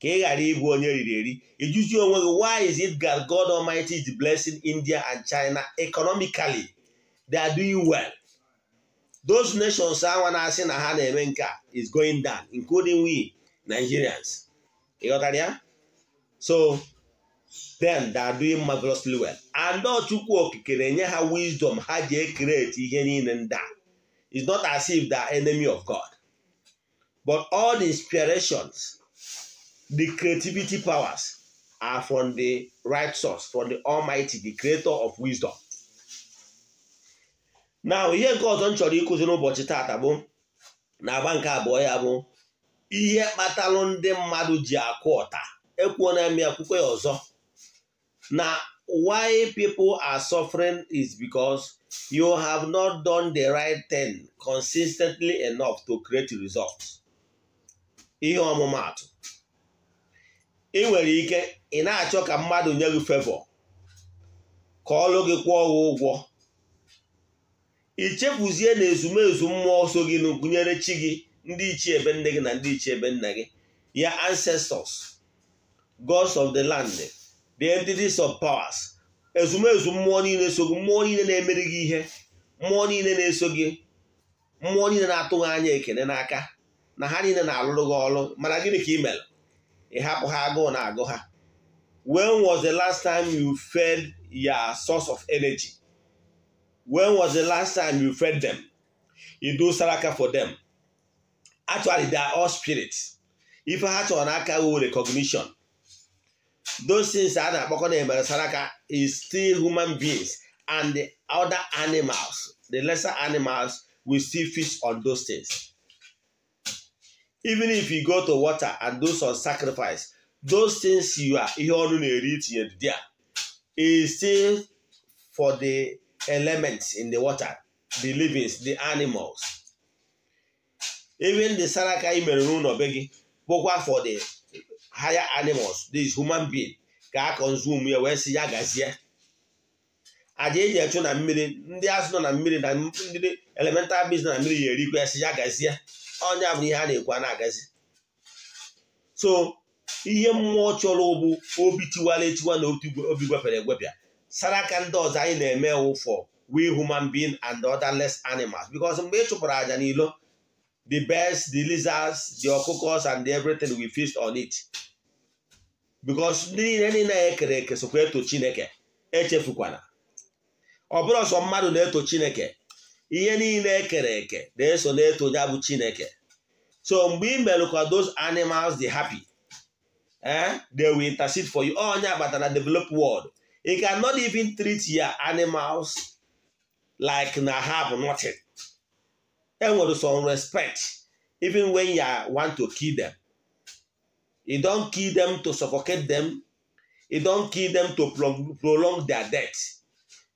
ka ị ghara ịbụ onye riri eri ịjụzi onwe gị why is it that God Almighty is blessing India and China economically they are doing well those nations are na-asị na ha na is going down including we Nigerians that, yeah? so then they are doing marvelously well and not to na wisdom ha ji ekreti ihe niile ndị it's not as if they are enemy of God but all the inspirations the creativity powers are from the right source from the Almighty the creator of wisdom na ihe nke ọzọ m chọrọ ịkụzi n'ụbọchị taata bụ na agba nke abụọ ya bụ ihe kpatalụ ndị mmadụ ji akụ ọta ekwuo na ya akwụkwọ ya ọzọ na why people are suffering is because you have not done the right thing consistently enough to create results ihe ọmụmaatụ ị nwere ike ị na-achọ ka mmadụ nye gị favor ka ọlụ gị kwụọ ụgwọ ichefuzie na ezumezu mmụọ so gị na gụnyere chi gị ndị ichie ebe nne gị na ndị ichie ebe nna gị ya ancestors gods of the land the entities of powers ezumezu mmụọ niile so gị mmụọ niile na-emeri gị ihe mmụọ niile na-eso gị mmụọ niile na-atụghị anya ekele n'aka na ha niile na-alụrụ gị ọrụ mana gịnị ka ị mere ị hapụ ha agụụ na agụ ha when was the last time you fed your source of energy When was the last time you fed them? You do saraka for them. Actually, they are all spirits. If I had to anaka with recognition. Those things are not saraka is still human beings and the other animals, the lesser animals, will still feast on those things. Even if you go to water and do some sacrifice, those things you are ihe ọnụ na-eri tinyere there is still for the elements in the water, the livings, the animals. Even the saraka i mere n'ụlọ be gị bụkwa for the higher animals, these human being ka a consume ya wee si ya gazie. Aja eji echu na mmiri ndị azụ nọ na mmiri na ndị elemental beings na mmiri ya erikwa ya si ya gazie ọnya bụ ihe a na-ekwu a na-agazi so ihe mmụọ chọrọ ụbụ obi tiwara etiwa na obi gwepere egwepịa sara ka ndị ọzọ anyị na-eme ụfọ we human being and other less animals because mgbe ị chụpụrụ aja n'ilo the birds the lizards the okokos and everything we feast on it because ndị niile niile ekere eke sokwa eto chineke echefukwala ọ bụrụ ọsọ mmadụ na-eto chineke ihe niile ekere eke na-eso na-eto ya bụ chineke so mgbe ị mere ka those animals dị happy eh they will intercede for you onye agbatara develop world You cannot even treat your animals like na have nothing. And with some respect, even when you want to kill them. You don't kill them to suffocate them. You don't kill them to prolong their death.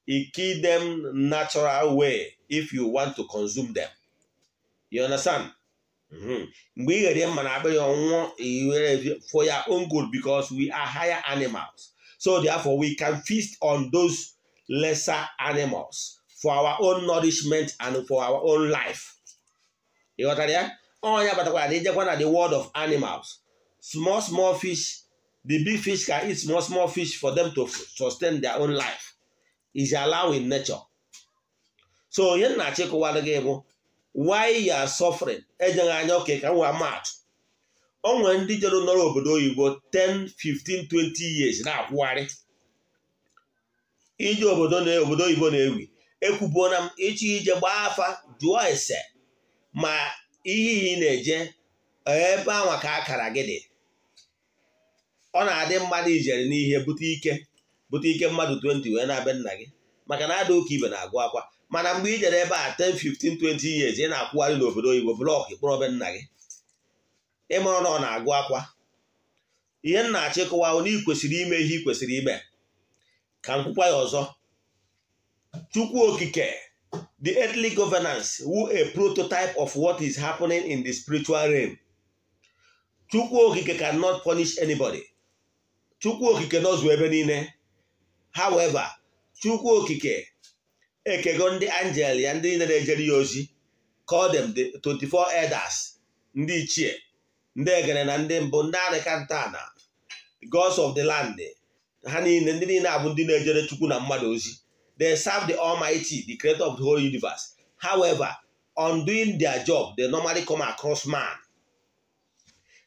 You kill them natural way if you want to consume them. You understand? Mm-hmm. Mgbe ị for your own good because we are higher animals. So therefore, we can feast on those lesser animals for our own nourishment and for our own life. You got that? Oh yeah, but they just want the world of animals. Small, small fish, the big fish can eat small, small fish for them to sustain their own life. Is allowing nature. So here na oh. why you are suffering. o nwere ndị jere nọrọ obodo oyibo 10 15 20 years na-akwụgharị ije obodo obodo oyibo na-ewi ekwubuona m ịchọ ije gbaa afa jụọ ese ma ihe na-eje ebe anwa akara gị dị ọ na-adị mmadụ ijere n'ihe bute ike bute ike mmadụ 20 wee na-abịa nna gị maka na ada ụka ibe na-agụ akwa mana mgbe i jere ebe a 10 15 20 years ị na-akwụgharị n'obodo oyibo blọk kpọrọ be nna gị ịmụrụ na ọ na-agụ akwa ihe m na-achọ kwesịrị ime ihe ị kwesịrị ime ka m ọzọ Chukwu Okike the earthly governance wu a prototype of what is happening in the spiritual realm Chukwu Okike cannot punish anybody Chukwu Okike nọzụ ebe niile however Chukwu Okike ekego ndị angel ya ndị niile na-ejere ya ozi call them the 24 elders ndị ichie ndị egere na ndị mbụ ndị na. gods of the land ha niile ndị niile abụ ndị na-ejere chukwu na mmadụ ozi they serve the almighty the creator of the whole universe however on doing their job they normally come across man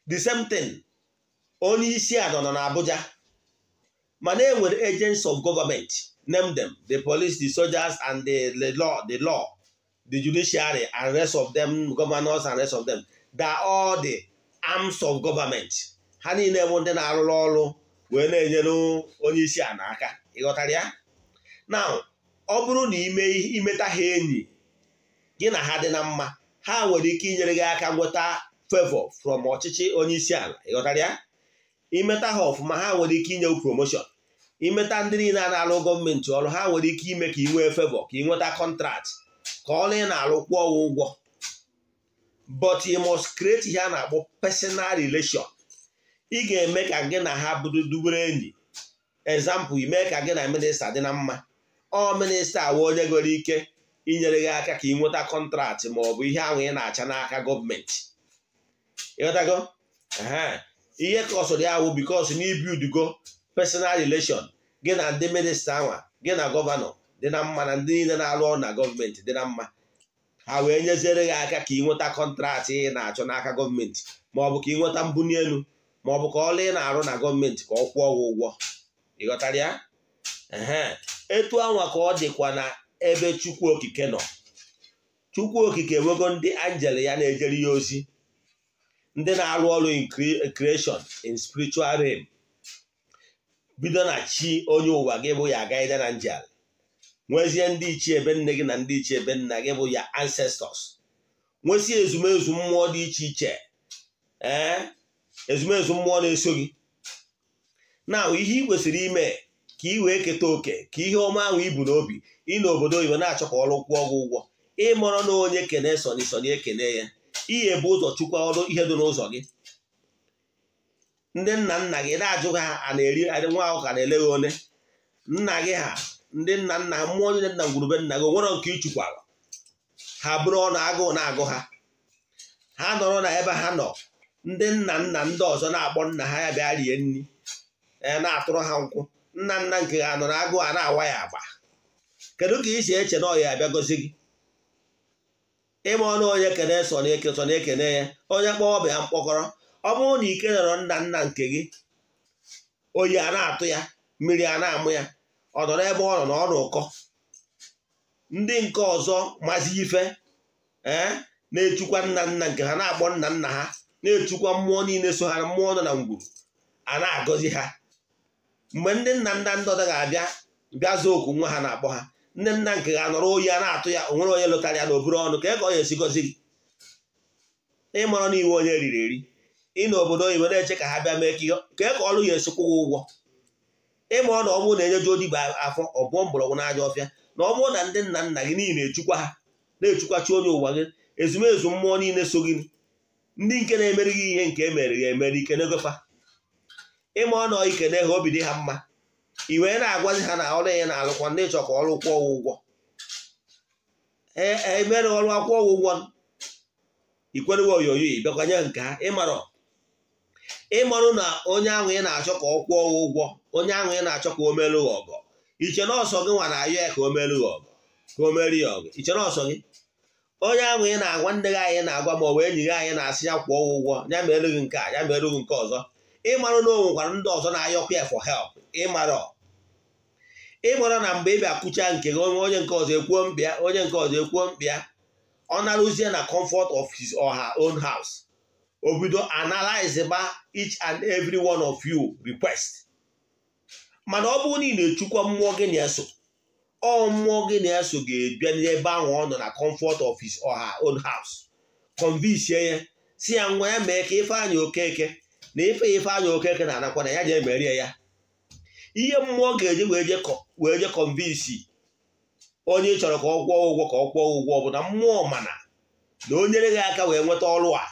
the same thing onye isi anọ nọ na abuja mana e nwere agents of government name them the police the soldiers and the, the law the law the judiciary and rest of them governors and rest of them they are all the arms of government ha niile bụ ndị na-arụrụ ọrụ wee na-enyere onye isi a n'aka ịghọtara ya na ọ bụrụ na imeta ha enyi gị na ha dị na mma ha nwere ike inyere gị aka nweta favọ from ọchịchị onye isi ala ịghọtara ya imeta ha ọfụma ha nwere ike inye promotion imeta ndị niile a na-alụ gọọmenti ọrụ ha nwere ike ime ka ị nwee favọ ka ị nweta kọntrakt ka ọ na ị na arụ kwụọ ụgwọ but you must create ihe a na-akpọ personal relation ị ga-eme ka gị na ha bụrụ dubere enyi example ime ka gị na minista dị na mma ọ minista awa onye nwere ike inyere gị aka ka ị nweta kọntraktị ma ọ bụ ihe ahụ ị na-acha n'aka gọọmenti ịghọtago ihe ka ọsọ dị awụ bikos na ibiudugo personal relation gị na ndị minista anwa gị na gọvanọ dị na mma na ndị niile na-arụ ọrụ na gọọmenti dị na mma ha wee nyeziere gị aka ka ị nweta kọntrat ị na-achọ n'aka gọọmenti maọbụ ka ị nweta mbunye elu maọbụ ka ọlụ ị na-arụ na gọọmenti ka ọ kwụọ gị ụgwọ ịghọtara ya etu anwa ka ọ dịkwa na ebe chukwu okike nọ chukwu okike enwego ndị anjel ya na-ejere ya ozi ndị na-arụ ọrụ in creation in spiritual rem bido na chi onye ụwa gị bụ ya agaghị na njel nwezie ndị ichie ebe nne gị na ndị ichie ebe nna gị bụ ya ancestors nwesị ezumezu mmụọ dị iche iche ee ezumezu mmụọ na-eso gị na ihe ị kwesịrị ime ka ị wee keta oke ka ihe ọma ahụ ibu n'obi ị na obodo oyibo na-achọ ka ọrụ kwụọ gị ụgwọ ịmọrọ na onye kene soni ekene ya ihe bụ ụzọ chukwa ọrụ ihe dị n'ụzọ gị ndị nna nna gị na-ajụ ha a na-eri nwa ahụ ka na-ele gị nna gị ha ndị nna nna ha mmụọ onye nna ngwurube nna gị nwere nke ịchụkwa ha bụrụ ọnụ agụụ na-agụ ha ha nọrọ na ebe ha nọ ndị nna nna ndị ọzọ na-akpọ nna ha ya bịa rie nri e, na-atụrụ ha nkwụ nna nna nke ha nọ na agụụ a na-awa ya agba kedu ka i si eche na ọya abịa gozi gị ịma ọnụ onye kene so na ekene ya onye kpọọ ọbịa mkpọkọrọ ọ bụrụ na ike nọrọ nna nna nke gị oyi a na-atụ ya mmiri a na-amụ ya ọ nọ ebe ọ nọ na ọ ndị nke ọzọ mazi ife ee na-etukwa nna nna nke ha na-akpọ nna nna ha na-etukwa mmụọ niile so ha mmụọ nọ na ngwuru a na-agọzi ha mgbe ndị nna nna ndọda ga-abịa bịa zaa oku nwa ha na-akpọ ha ndị nna nke ga anọrọ oyi a na-atụ ya onwere onye lụtara ya n'obere ọnụ ka e ka ọ esi gọzi gị ịmara na iwe onye riri eri ị na obodo oyibo na-eche ka ha bịa mee ka e ka ọrụ ya esikwa ụgwọ ịma ọ na ọ bụrụ na enyeju odibo afọ ọ bụọ mgbọrọgwụ n'aja ọfịa na ọ bụrụ na ndị nna nna gị niile echukwa ha na-echukwachi onye ụwa gị ezumezu mmụọ niile so gị ndị nke na-emeri gị ihe nke emere ya emere ike n'egofa ịma ọ na ikene ha obi dị ha mma i wee na-agwazi ha na ọrụ ya na-alụkwa ndị chọkwa ọrụ kwụọ ụgwọ emere e, ọrụ akwụkwọ ụgwọ ikwerewe onyonyo ịbịakwanye nke ha ịmarụ na onye ahụ ị na-achọ ka ọ kwụọ ụgwọ onye ahụ ị na-achọ ka o melu ọgụ iche na ọsọ gị nwa na-ayọ ya ka o melu ọgụ ka o melu ya ọgọ iche na ọsọ gị onye ahụ ị na-agwa ndị gị anyị na-agwa ma ọ bụ enyi gị anyị na-asị ya kwụọ ụgwọ ya ma gị nke a ya ma gị nke ọzọ ịmarụ na o nwekwara ndị ọzọ na-ayọkwa ya for help ịmarọ ịmarọ na mgbe ị bịa kụcha nke gị onye nke ọzọ ekwuo mkpịa onye nke ọzọ ekwuo mkpịa ọ narụzie na comfort of his or her own house o analyze ba each and every one of you request mana ọ bụrụ na ị na-echukwa mmụọ gị na-eso ọ mmụọ gị na-eso ga ebia n'ebe ahụ ọ nọ na kọmfọt ọfis ọha or haus own ya si ya nwa ya mee ka Ifeanyị Okeke na ife anya Okeke na-anakwa na ya je emerie ya ihe mmụọ ga-eje wee je convince onye chọrọ ka ọ kwụọ ụgwọ ka ọ kwụọ ụgwọ bụ na mmụọ mana na o nyere gị aka wee nweta ọrụ a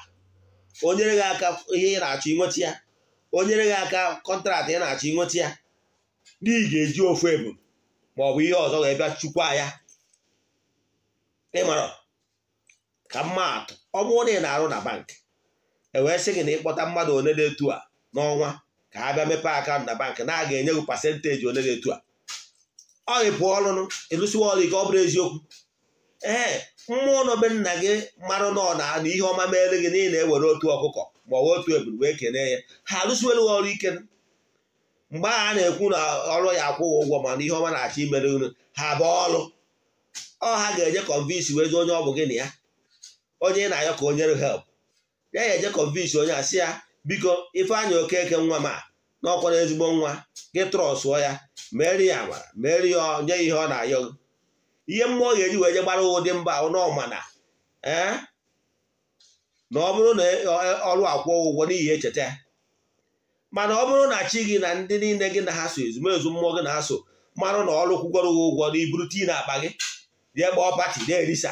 o nyere gị aka ihe ị na-achọ inweta ya o nyere gị aka kọntraktị ị na-achọ inweta ya n'ihi ga-eji ofu ebu ma ọ bụ ihe ọzọ wee bịa chukwa ya ịmara ka mmadụ ọ bụrụ na ị na-arụ na bankị ewee sị gị na ịkpọta mmadụ one dị etu a n'ọnwa ka ha bịa mepee akaụntụ na bankị na a ga-enye gị pasenteji one dị etu a ọ ịpụ ọlụnụ ịlụsiwa ọlụ ike ọ bụrụ eziokwu ee mmụọ nọ nna gị marụ nọ na na ihe ọma meere gị na ewere otu ọkụkọ ma ọ bụ otu ebulu wee kenee ya ha alụsiwere ọrụ ike mgbe a na-ekwu na ọrụ ya akwụghị ụgwọ mana ihe ọma na-achọ imere unu ha bụ ọrụ ọ ha ga-eje kọnvinsi wee onye ọ bụ gị na ya onye ị na-ayọ ka o nyere help ya ya eje kọnvinsi onye a sị ya biko ifeanyi Okeke nwa m a na ezigbo nwa gị trọsụọ ya mere ya amara mere ya nye ihe ọ na-ayọ gị ihe mmụọ ga-eji wee je gbara ụdị mba nọmana ee eh, na ọ bụrụ na ọrụ akwụọ ụgwọ n'ihi echeta ya mana ọ bụrụ na chi gị na ndị niile gị na ha so ezumezu mmụọ gị na ha so marụ na ọrụ kwụgwọrọ gị ụgwọ na iburu tii na akpa gị rie gbaa pati na-erisa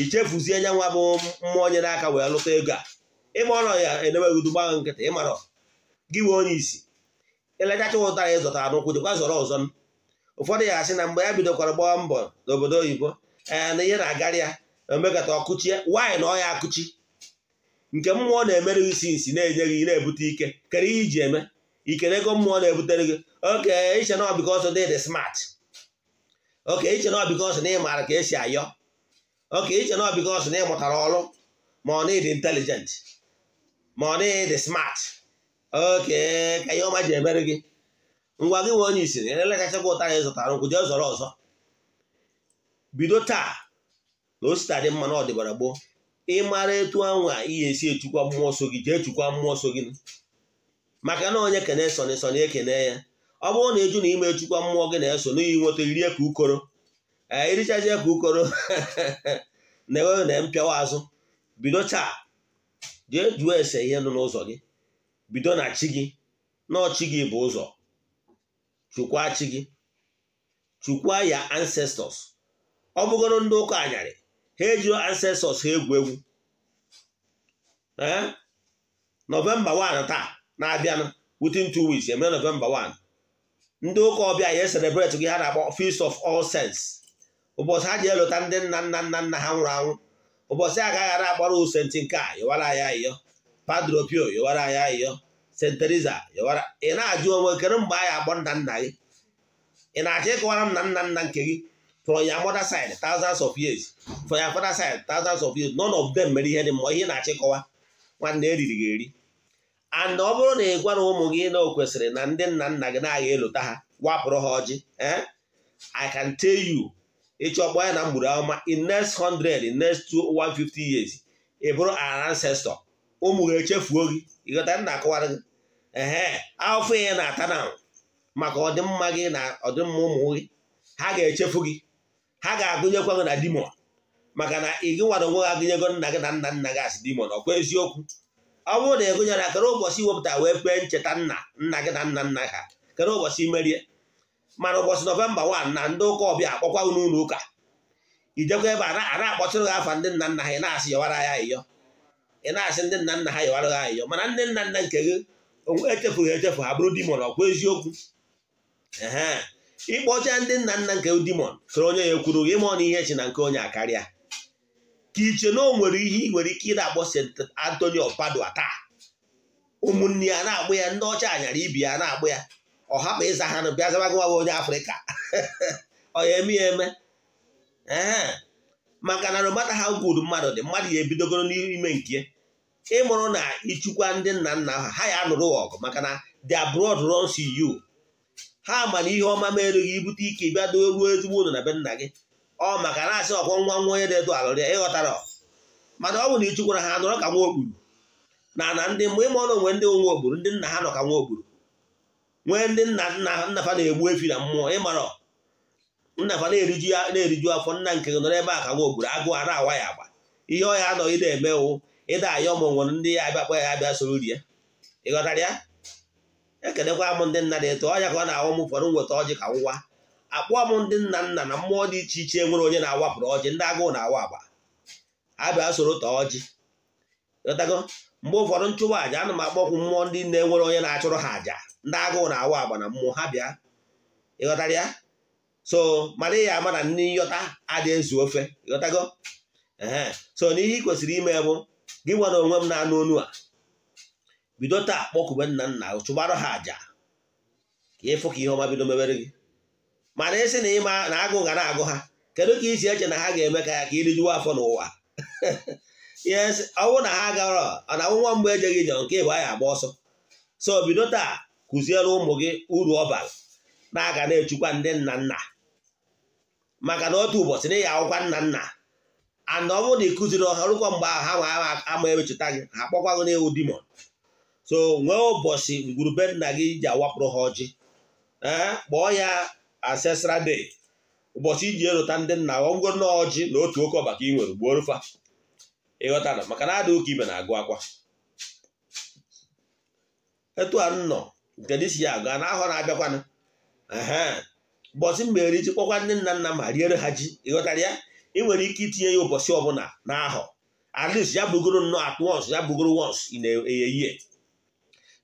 ichefuzie nya nwa bụ mmụọ onye n'aka wee lụta ego a ịma ọnọ ya eneweghịdu gbaghị nkịtị ịmarọ gị wee onye isi elechacha ụtara ịzụtara n'ụkwụ jekwa zọrọ ọzọ ụfọdụ ya asị na mgbe ya bidokwara gbaa mbọ n'obodo oyibo ee na ihe na-agara ya na omekata ọkụchie nwaanyị na ọya akụchi nke mmụọ na-emere isi nsi na-enye gị na-ebute ike kere ihe iji eme ikere ego mmụọ na-ebutere gị oke iche na ọbịka ọsọ dị dị smart oke iche na ọbịka ọsọ na ị maara ka esi ayọ oke iche na ọbịka ọsọ na ị mụtara ọrụ ma ọ na-ịdị ma ọ na-ịdị smart oke ka ihe ọma ji emere gị ngwa gị nwe onye isiri ele kachakwa ụtara ị zụtara nkwụ jee zọrọ ọzọ bido taa na osita dị mma na ọdịbara gboo ị mara etu anwa ihe esi echukwa mmụọ nsọ gị jee chukwa mmụọ nsọ gị maka na onye kene soni soni ekene ya ọ bụrụ na ịjụ na ime echukwa mmụọ gị na-eso n'ihi nweta irie ka ukoro ee irichazie ka ukoro [LAUGHS] na ewe na mpịawa azụ bido taa jee jụọ ese ihe nọ n'ụzọ gị bido na chi gị na ọchị gị bụ ụzọ chukwa chi gị chukwa ya ancestors ọ bụgoro ndị ụka anyarị ha eji ancestors ha egwu egwu eh? nọvemba 1 taa na-abịanụ within two weeks emere nọvemba 1 ndị ụka ọbịa ya celebrate gị ha na-akpọ feast of all saints ụbọchị ha ji elụta ndị nna nna nna nna ha nwụrụ anwụ ụbọchị a ara akpọrọ usenti nke a yọwara ya ayịyọ padre pio yọwara ya ayịyọ st yọwara ị na-ajụ onwe kere mgbe anyị akpọ nna nna gị ị na-achọ ịkọwara m na nna nna nke gị from your mother side thousands of years from your father side thousands of years none of them mere ihe dị mma ihe na-achịkọwa nwanne eriri ga eri and ọ bụrụ na ị gwara ụmụ gị na o kwesịrị na ndị nna nna gị na-agha elota ha wapụrụ ha ọjị eh? I can tell you ịchọkpọ ya na mgburu ahụma in next 100 in next 150 years ị bụrụ an ancestor ụmụ gị echefuo gị ịghọta nna akụwara gị ehe afọ ihe na-ata na maka ọdịmma gị na ọdịmma ụmụ gị ha ga-echefu gị ha ga-agụnyekwa gị na dimon maka na ị gị onwe gị agụnyego nna gị na nna nna gị asị dimon ọkwa eziokwu ọ bụrụ na ịgụnyere kere ụbọchị iwepụta wee kpee ncheta nna nna gị na nna nna ha kere ụbọchị merie mana ụbọchị nọvemba 1 na ndị ụka ọbịa akpọkwa unu ụlọ ụka ijekwa ebe a na-akpọtụrụ gị afa ndị nna nna ha ị na-asị yọwara ya ayịyọ ị na-asị ndị nna nna ha yọwara ya ayịyọ mana ndị nna nna nke gị echefughị echefu ha bụrụ dimon ọkwa eziokwu ịkpọcha ndị nna nna nke dimon soro onye ya kwuru gị mụọ na ihe chi na nke onye akarịa ka iche na o nwere ihe ị nwere ike ị na akpọ St. antonio of Padua taa ụmụnne ya na-agbụ ya ndị ọcha anyara ibi ya na-agbụ ya ọ hapụ ịza ha na bịa zabagụwa onye afrịka [LAUGHS] ọ ya eme ya eme maka na romata ha gwuru mmadụ dị mmadụ ya ebidogoro n'ime nke ịmụrụ na ịchụkwa ndị nna nna ha ha ya anụrụ ọgụ maka na the abroad runs you ha ma na ihe ọma merụ gị ibute ike ịbịa doo ruo ezigbo unu na be nna gị ọ maka na-asị ọkwọ nwa nwa onye na-edo alụrị ịghọtara mana ọ bụ na ichukwara ha nọrọ ka nwa ogburu na na ndị mgbe ịma ọnụ onwe ndị nwa ogburu ndị nna ha nọ ka nwa ogburu nwee ndị nna nna nna fa na-egbu efi na mmụọ ịmara nna fa na-eriju na-eriju afọ nna nke gị nọrọ ebe a ka nwa agụ a na awa ya agba ihe ọhịa anọghị na-emewu ịda ayọ ọmụ nwere ndị ya abịakpa ya abịa soro ya ịghọtara ya ekelekwa m ndị nna na-eto ọnya ka ọ na awụ m ụfọdụ nweta ọjị ka ngwa akpụọ m ndị nna nna na mmụọ dị iche iche nwere onye na-awapụrụ ọjị ndị agụụ na-awa agba abịa soro taa ọjị ghọtago mgbe ụfọdụ nchụwa aja ana m akpọkwu mmụọ ndị na-enwere onye na-achụrụ ha aja ndị agụụ na-awa agba na mmụọ ha bịa ịghọtara ya so mara ya ama na ndị nyọta adị ezu ofe ịghọtago so n'ihe ị kwesịrị ime bụ gị nwere onwe m na-anụ onu a bido taa akpọkube nna nna chụbarụ ha àjà ka ịfụ e ka ihe ọma bido mebere gị mana ịsị na ịma na agụ ga na-agụ ha kedu ka isi eche na ha ga-eme ka ya ka irijuwa afọ n'ụwa [LAUGHS] yes ọnwụ na ha gara na nwa mgbe ejeghị njọ nke bụ anyị agba ọsọ so bido taa kụziere ụmụ gị uru ọ bara na-aga na-echukwa ndị nna nna maka na otu ụbọchị na ịya akwụkwa nna nna ana ọ bụrụ na ịkụziri kụziri ọha rụkwa mgbe ahụ ha ama ewechụta gị ha akpọkwa na n'ewu dimon so nwee ụbọchị ngwurube nna gị ji awapụrụ ha ọjị eh, kpọọ ya asesra de ụbọchị iji erụta ndị nna ngwo na ọjị na otu oke ọba ka ị nwere gbuo rufa ịghọtara maka na adị ụka ibe na-agụ akwa etu a nnọ nke dị si ya aga a na-ahọ na-abịakwanụ ụbọchị mere ji kpọkwa ndị nna nna ma riere ha ji ịghọtara ya ị nwere ike itinye ya ụbọchị ọbụla na ahọ at least ya bugoro nnọọ atụ once ya bugoro once ị na-eyeyie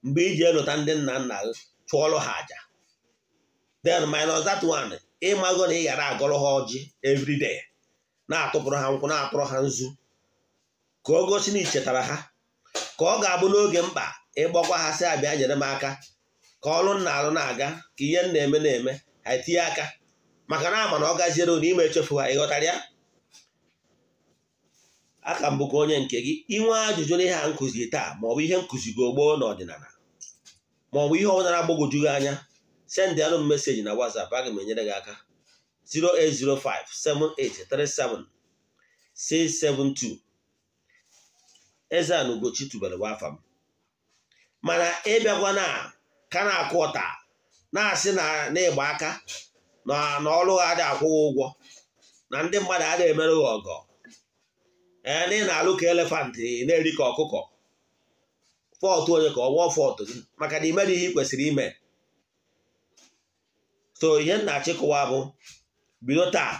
mgbe iji elụta ndị nna nna gị chụọrọ ha aja then minus that one ịmago na ị ghara agụrụ ha ọjị everyday na-atụpụrụ ha nkwụ na-atụrụ ha nzu ka o gosi na ichetara ha ka ọ ga-abụ n'oge mkpa ịgbakwa ha si abịa nyere m aka ka ọlụ nna alụ na-aga ka ihe na-eme na-eme ha etinye aka maka na ama na ọ gaziere na ime echefu ha ịghọtara ya aka mbụ ka onye nke gị inwe ajụjụ na ihe a nkụzi taa ma ọ bụ ihe nkụzi gị ogboo n'ọdịnala ma ọ bụ ihe ọbụla na-agbagwoju gị anya sendịalụ m meseji na WhatsApp aga m enyere gị aka 08057837672 Eze-Ana Ugochi tubelu bụ afa m mana ịbịakwa na ka na-akụ ọta na-asị na ịgba aka na ọrụ ha adịghị akwụghị ụgwọ na ndị mmadụ adịghị emerụghị ọgọ ee na ị na-alụ ka na-eri ka ọkụkọ fọtụ onye ka ọ gwọọ fọtụ gị maka na imere ihe ị kwesịrị ime so ihe nna achịkụwa bụ bido taa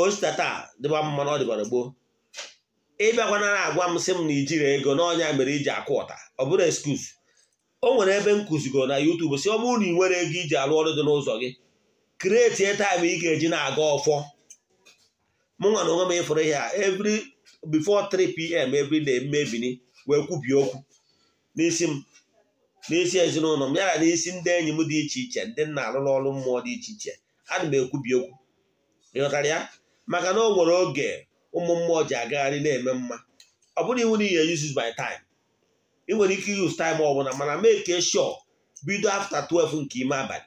osita taa dịba mmanụ na ọ dịbara gboo ịbịakwana na-agwa m sị m na ijiri ego n'ọnya mere iji akụ ụta ọ bụrụ eskuz o nwere ebe m kụzigo na YouTube si ọ bụrụ na ị nwere ego iji alụ ọrụ dị n'ụzọ gị kreetie taịm ị ga-eji na-aga ọfọ mụ nwa na onwe m ịfụrụ ihe a every before 3 pm every na mmebiri wee kwubie okwu n'isi m n'isi ezinụlọ m ya na isi ndị enyi m dị iche iche ndị nna alụrụ ọrụ mmụọ dị iche iche ana m ekwubi okwu ịghọtara ya maka na o nwere oge ụmụ mmụọ ji agagharị na-eme mma ọ bụrụ iwu na ihe uses by time ị nwere ike use time ọ bụla mana make sure bido after 12 nke ime abalị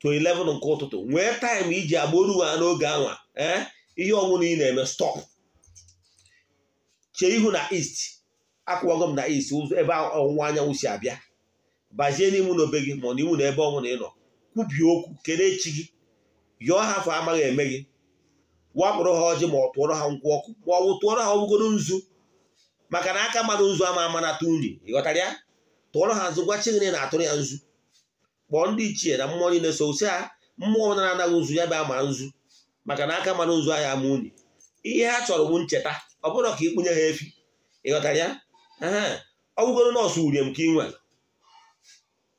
to 11 nke ụtụtụ nwee time iji agboro ha n'oge anwa ee eh? ihe ọṅụṅụ ị na-eme stop chee ihu na east akwụwago m na isi ụzọ ebe ọwụwa anyanwụ si abịa bazie n'ime na obe gị ma ọ n'iwu na ebe ọnwụ na ịnọ kwubie okwu kelee echi gị yọọ ha afọ amaghị eme gị wapụrụ ha ọjị ma ọ tụọrọ ha nkwụ ọkụ ma ọ bụ tụọrọ ha ọgbụgoro nzu maka na aka mmadụ nzu ama ama na-atụ nri ịghọtara ya tụọrọ ha nzu gwa chigịrị na-atụrụ ya nzu kpọọ ndị ichie na mmụọ niile so si ha mmụọ na-anaghị nzu ya bụ ama nzu maka na aka mmadụ nzu ahịa ama unyi ihe ha chọrọ bụ ncheta ọ bụrụ ka ịkpụnye ha efi ịghọtara ya ọ bụgoro nọọsụ uriem ka ị nwere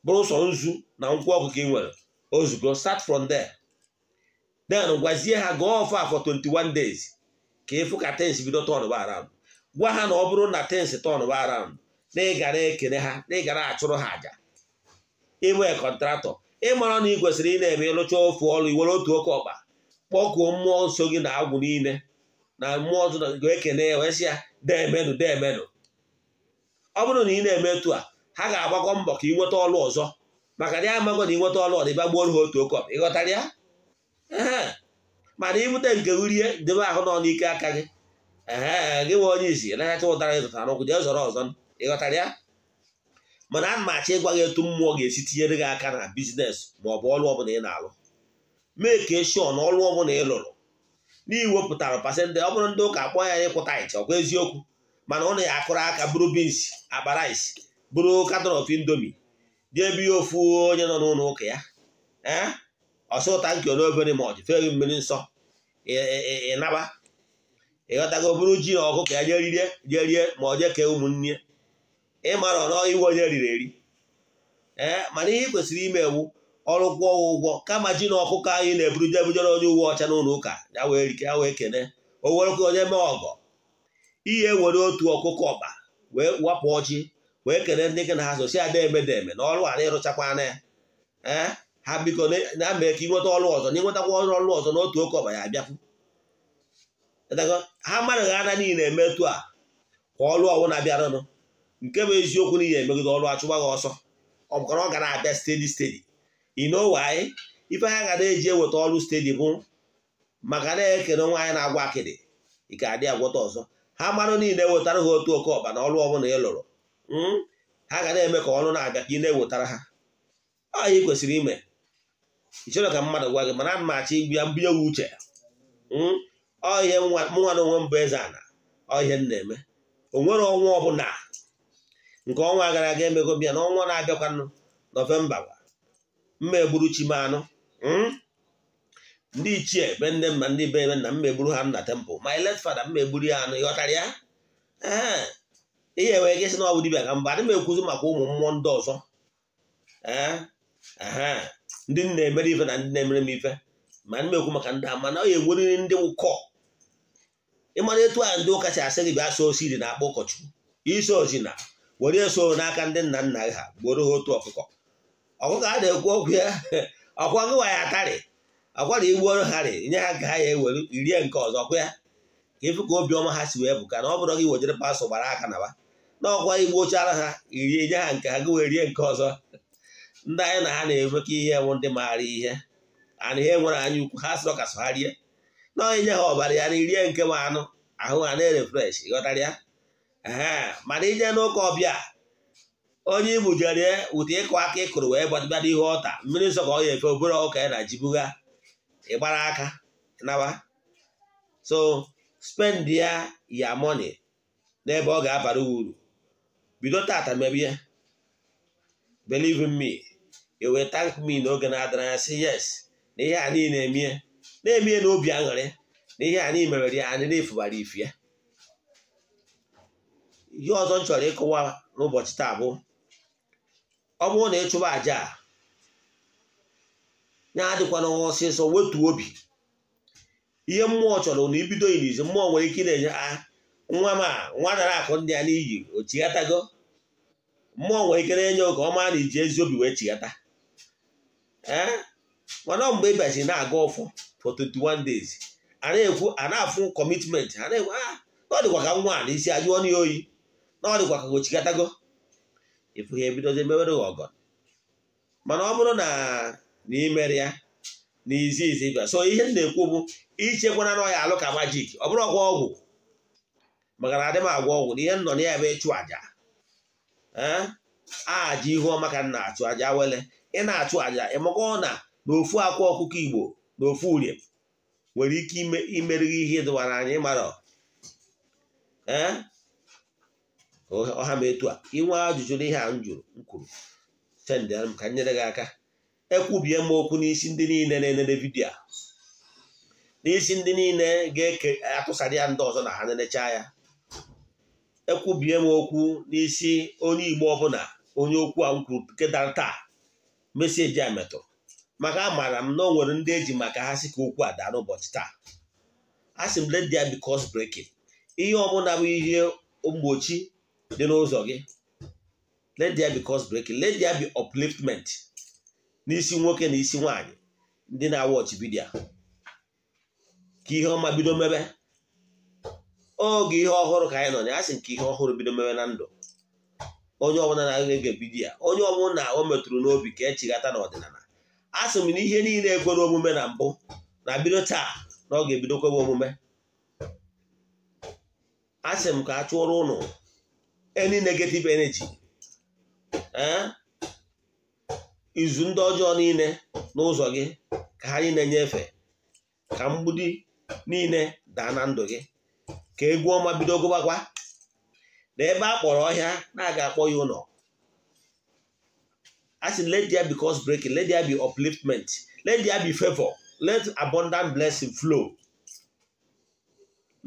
bụrụ sọ nzu na nkwụ ọkụ ka ị nwere ozugbo start from there then gwazie ha gụọ ọfa ah for 21 days ka ịfụ ka tens bido tọn baram gwa ha na ọ bụrụ na tens tọn baram na ịgara ekele ha na ịgara achụrụ ha aja ịbụ kọntratọ ịmara na ị kwesịrị ị na-eme ịlụcha ofu ọrụ iwere otu oke ọkpa kpọkuo mmụọ nso gị na agwụ niile na mmụọ ọzọ ga-ekene wee sị ya deemenụ ọ bụrụ na ị na-eme etu a ha ga-agbakọ mbọ ka ị nweta ọlụ ọzọ maka na ya amago na ị nweta ọlụ ọdịba gbuoro ha otu ị ịghọtara ya mana ibute nke urie debe ahụ nọ n'ike aka gị ee gị nwe onye izi nahacha ụtara ịzụta n'ụkwụ jee zọrọ ọzọ ịghọtara ya mana a na achọ ịgwa gị etu mmụọ ga-esi tinyere gị aka na bizines ma ọ bụ ọlụ ọbụla ị na-alụ mee ka eshọ na ọlụ ọbụla ị lụrụ n'iwepụtara pasentị ọ bụrụ ndị ụka akpọ ya ịkwụta ịcha ọkwa eziokwu mana ụnụ na akụrụ aka bụrụ bins akpa rice bụrụ katọn of indomi dị ebe ihe ofu onye nọ n'ụlọ ụka ya ee eh? ọsọ ụta nke obere ma ọ dị mmiri nsọ ịnaba ịghọtago buru ji na ọkụkọ ya jerie jerie ma ọ jee ụmụnne ịmara ọnọ iwe onye riri eri ee eh? mana ihe kwesịrị ime ewu ọrụ kwụọ ụgwọ kama ji na ọkụkọ anyị na-eburu jebujere onye uwe ọcha n'ụlọ ụka ya wee kene o werekwa onye mee ọgọ ihe were otu ọkụkọ ọba wee wapụ ọchị wee kere ndị gị na ha sosi ada emede eme na ọrụ a na ịrụchakwana ya ee eh, ha biko na mee ka ịnweta ọrụ ọzọ na ịnwetakwa ọrụ ọrụ ọzọ n'otu oke ọba ya abịapụ ha mmadụ ana niile eme etu a ka ọrụ ọwụ na-abịaranụ nke bụ eziokwu ihe emegide ọrụ achụgba gị ọsọ ọ bụkwa ọ gara abịa stedi stedi ino waanyị ife ha ga na-eji eweta ọrụ stedi bụ maka na-ekene nwaanyị na-agwa akịdị ị ga adị agwọta ọzọ ha mmanụ niile wetara ha otu oke ọba na ọrụ ọbụla ị lụrụ hmm? ha ga na-eme ka ọnụ na-abịa ka ị na-ewetara ha ọ ya kwesịrị ime ịchọrọ ka mmadụ gwa gị mana ana m achọ igbu ya mbinye uche hmm? ọ ihe mụnwa na onwe mbụ eze ana ọ ihe m na-eme o nwere ọnwa ọbụla nke ọnwa gara aga emego bịa na ọnwa na-abịakwanụ nọvemba gwa mma egburu chi m anụ hmm? ndị ichie be nne m ma ndị be ebe nna m megburu ha nna tempụl ma ilet fada m megburu ya anụ ịghọtara ya ee ihe wee gị sị na ọ bụ dibịa ka mba adị m ekwuzi maka ụmụ mmụọ ndị ọzọ ee ndị nna emere ife na ndị na-emere m ife ma ndị ekwu maka ndị a mana ọ ya egweriri ndị ụkọ ịmara etu a ndị ụka si asị gị bịa so osiri na-akpọ ụkọchukwu isi osi na were eso n'aka ndị nna nna ha gboro ha otu ọkụkọ ọkụkọ a na-ekwu okwu ya [LAUGHS] ọkwa ya atarị akwara iwu ọrụ ha rị nye ha ka ha ya ewere irie nke ọzọ kwa ya ka ịfụ ka obiọma ha si wee bụ ka na ọ bụrụ gị wejere pasọ gbara aka na ba na ọkwa igbu ochara ha irie nye ha nke ha gị wee rie nke ọzọ ndị anyị na ha na ka ihe nwụ ndị maara ihe ana ihe nwere anya ukwu ha sịrọ ka so ha rie na onye nye ha ọbara ya na irie nke ma anụ ahụ ha na-erefresh ịghọtara ya mana inye n'ụka ọbịa onye ibu jere ụtụ ịkụ aka ịkụrụ wee gbadịbịa ihe ọta mmiri nsọ ka ọ ya efe obere ọka ya na ji ịgbara aka naba so spend ya ya money n'ebe ọ ga-abara uru bido tata mebie ya believe in me you e will thank me n'oge na-adịra anya say yes na ihe a niile emie na-emie n'obi aṅụrị na ihe a niile merere ya anyị na-efubara ifu ya ihe ọzọ m chọrọ ịkụwa n'ụbọchị taa bụ ọ bụrụ na ị chụba a ya adịkwana ọsịsọ wetuo obi ihe mmụọ chọrọ na ibido ilizi mmụọ nwere ike ị na-enye a ah, nwa m a nwa dara akụ ndị a n'iyi o chighatago mmụọ nwere ike na-enye oge ọma na iji ezi obi wee chighata eh? mana mgbe ị bịazi na-aga ọfọ for 21 days a na-ekwu ana na-afụ kọmitmenti ana na-ekwu a ah, na ka nwa na isi ajụọ na oyi na ọ dịkwa ka o chighatago ịfụ ihe ebidozi mewere gị ọgọ mana ọ bụrụ na na ya na izi so ihe m na-ekwu bụ ichekwana na ọya alụ ka majik ọ bụrụ ọgwụ ọgwụ maka na adị m agwa ọgwụ na ihe nọ na ya ebe ịchụ aja eh? aja ihu ọma ka m achụ aja wele ị na-achụ aja ịmakọ na n'ofu akwa ọkụkọ igbo na ofu urie nwere ike imerighi ihe dụwara anyị mara eh? ọha ma etu a inwe ajụjụ n'ihe a m jụrụ m kwuru sendere m ka nyere gị aka ekwubie m okwu n'isi ndị niile na-enene vidiyo n'isi ndị niile ga-eke atụsadị ya ndị ọzọ na ha nenecha ya ekwubie m okwu n'isi onye igbo ọbụla onye okwu a m kwuru taa meseji a metụrụ maka amaara m na o nwere ndị eji maka ha si ka okwu a daa n'ụbọchị taa a sị m let there be ihe ọbụla bụ ihe mgbochi dị n'ụzọ gị let there be cause bi let n'isi nwoke na isi nwaanyị ndị na-awọchi bidia ka ihe ọma bido mebe oge ihe ọhụrụ ka anyị nọ na asị nke ihe ọhụrụ bido mebe na ndụ onye ọbụla na-aga ya onye ọbụla na o metụrụ n'obi ka echighata n'ọdịnala a sị m na ihe niile ekwere omume na mbụ na bido taa na ọ ga-ebido kwebe omume asị m ka a chụọrọ ụnụ any negative energy ee izu ndị ọjọọ niile n'ụzọ gị ka ha na-enyefe ka mgbudi niile daa na ndụ gị ka egwu ọma bido gụbakwa na ebe a kpọrọ ọhịa na-aga akpọ ya ụlọ asị let there be cause breaking let there be upliftment let there be favor let abundant blessing flow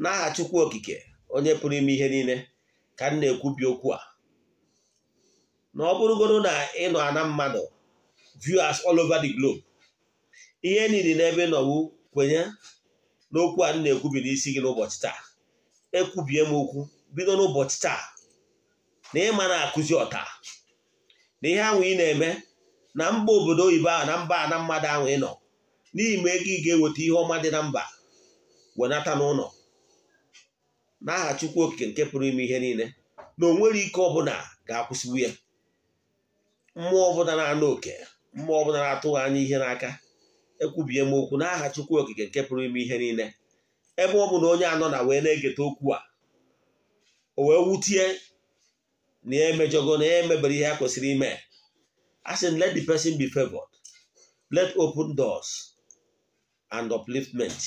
n'aha chukwu okike onye pụrụ ime ihe niile ka m na-ekwubi okwu a na ọ bụrụgoro na ị nọ ana mmadụ viewers all over the globe ihe e niile n'ebe nọwu kwenye n'okwu a na-ekwubi n'isi gị n'ụbọchị taa ekwubie m okwu bido n'ụbọchị taa na ịma na-akụzi ọta na ihe ahụ ị na-eme na mba obodo oyibo ahụ na mba na mmadụ ahụ ị nọ n'ihi ma ego ị ga-eweta ihe ọma dị na mba wenata n'ụlọ n'aha Chukwu Okike nke pụrụ ime ihe niile na o nwere ike ọbụla ga-akwụsịwu ya mmụọ ọbụla na-anụ oke mma ọbụla na-atụghị anya ihe n'aka ekwubie m okwu n'aha Chukwu Okike nke pụrụ ime ihe niile ebe ọ bụ na onye anọ na wee na-egeta okwu a o wee wutie na ya e emejọgo na emebere ihe a kwesịrị ime asin sị let the person be favored let open doors and upliftment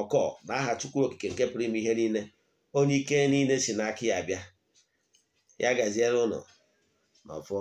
ọkọ na aha Chukwu Okike nke pụrụ ime ihe niile onye ike niile si n'aka ya bịa ya gaziere ụlọ n'ọfọ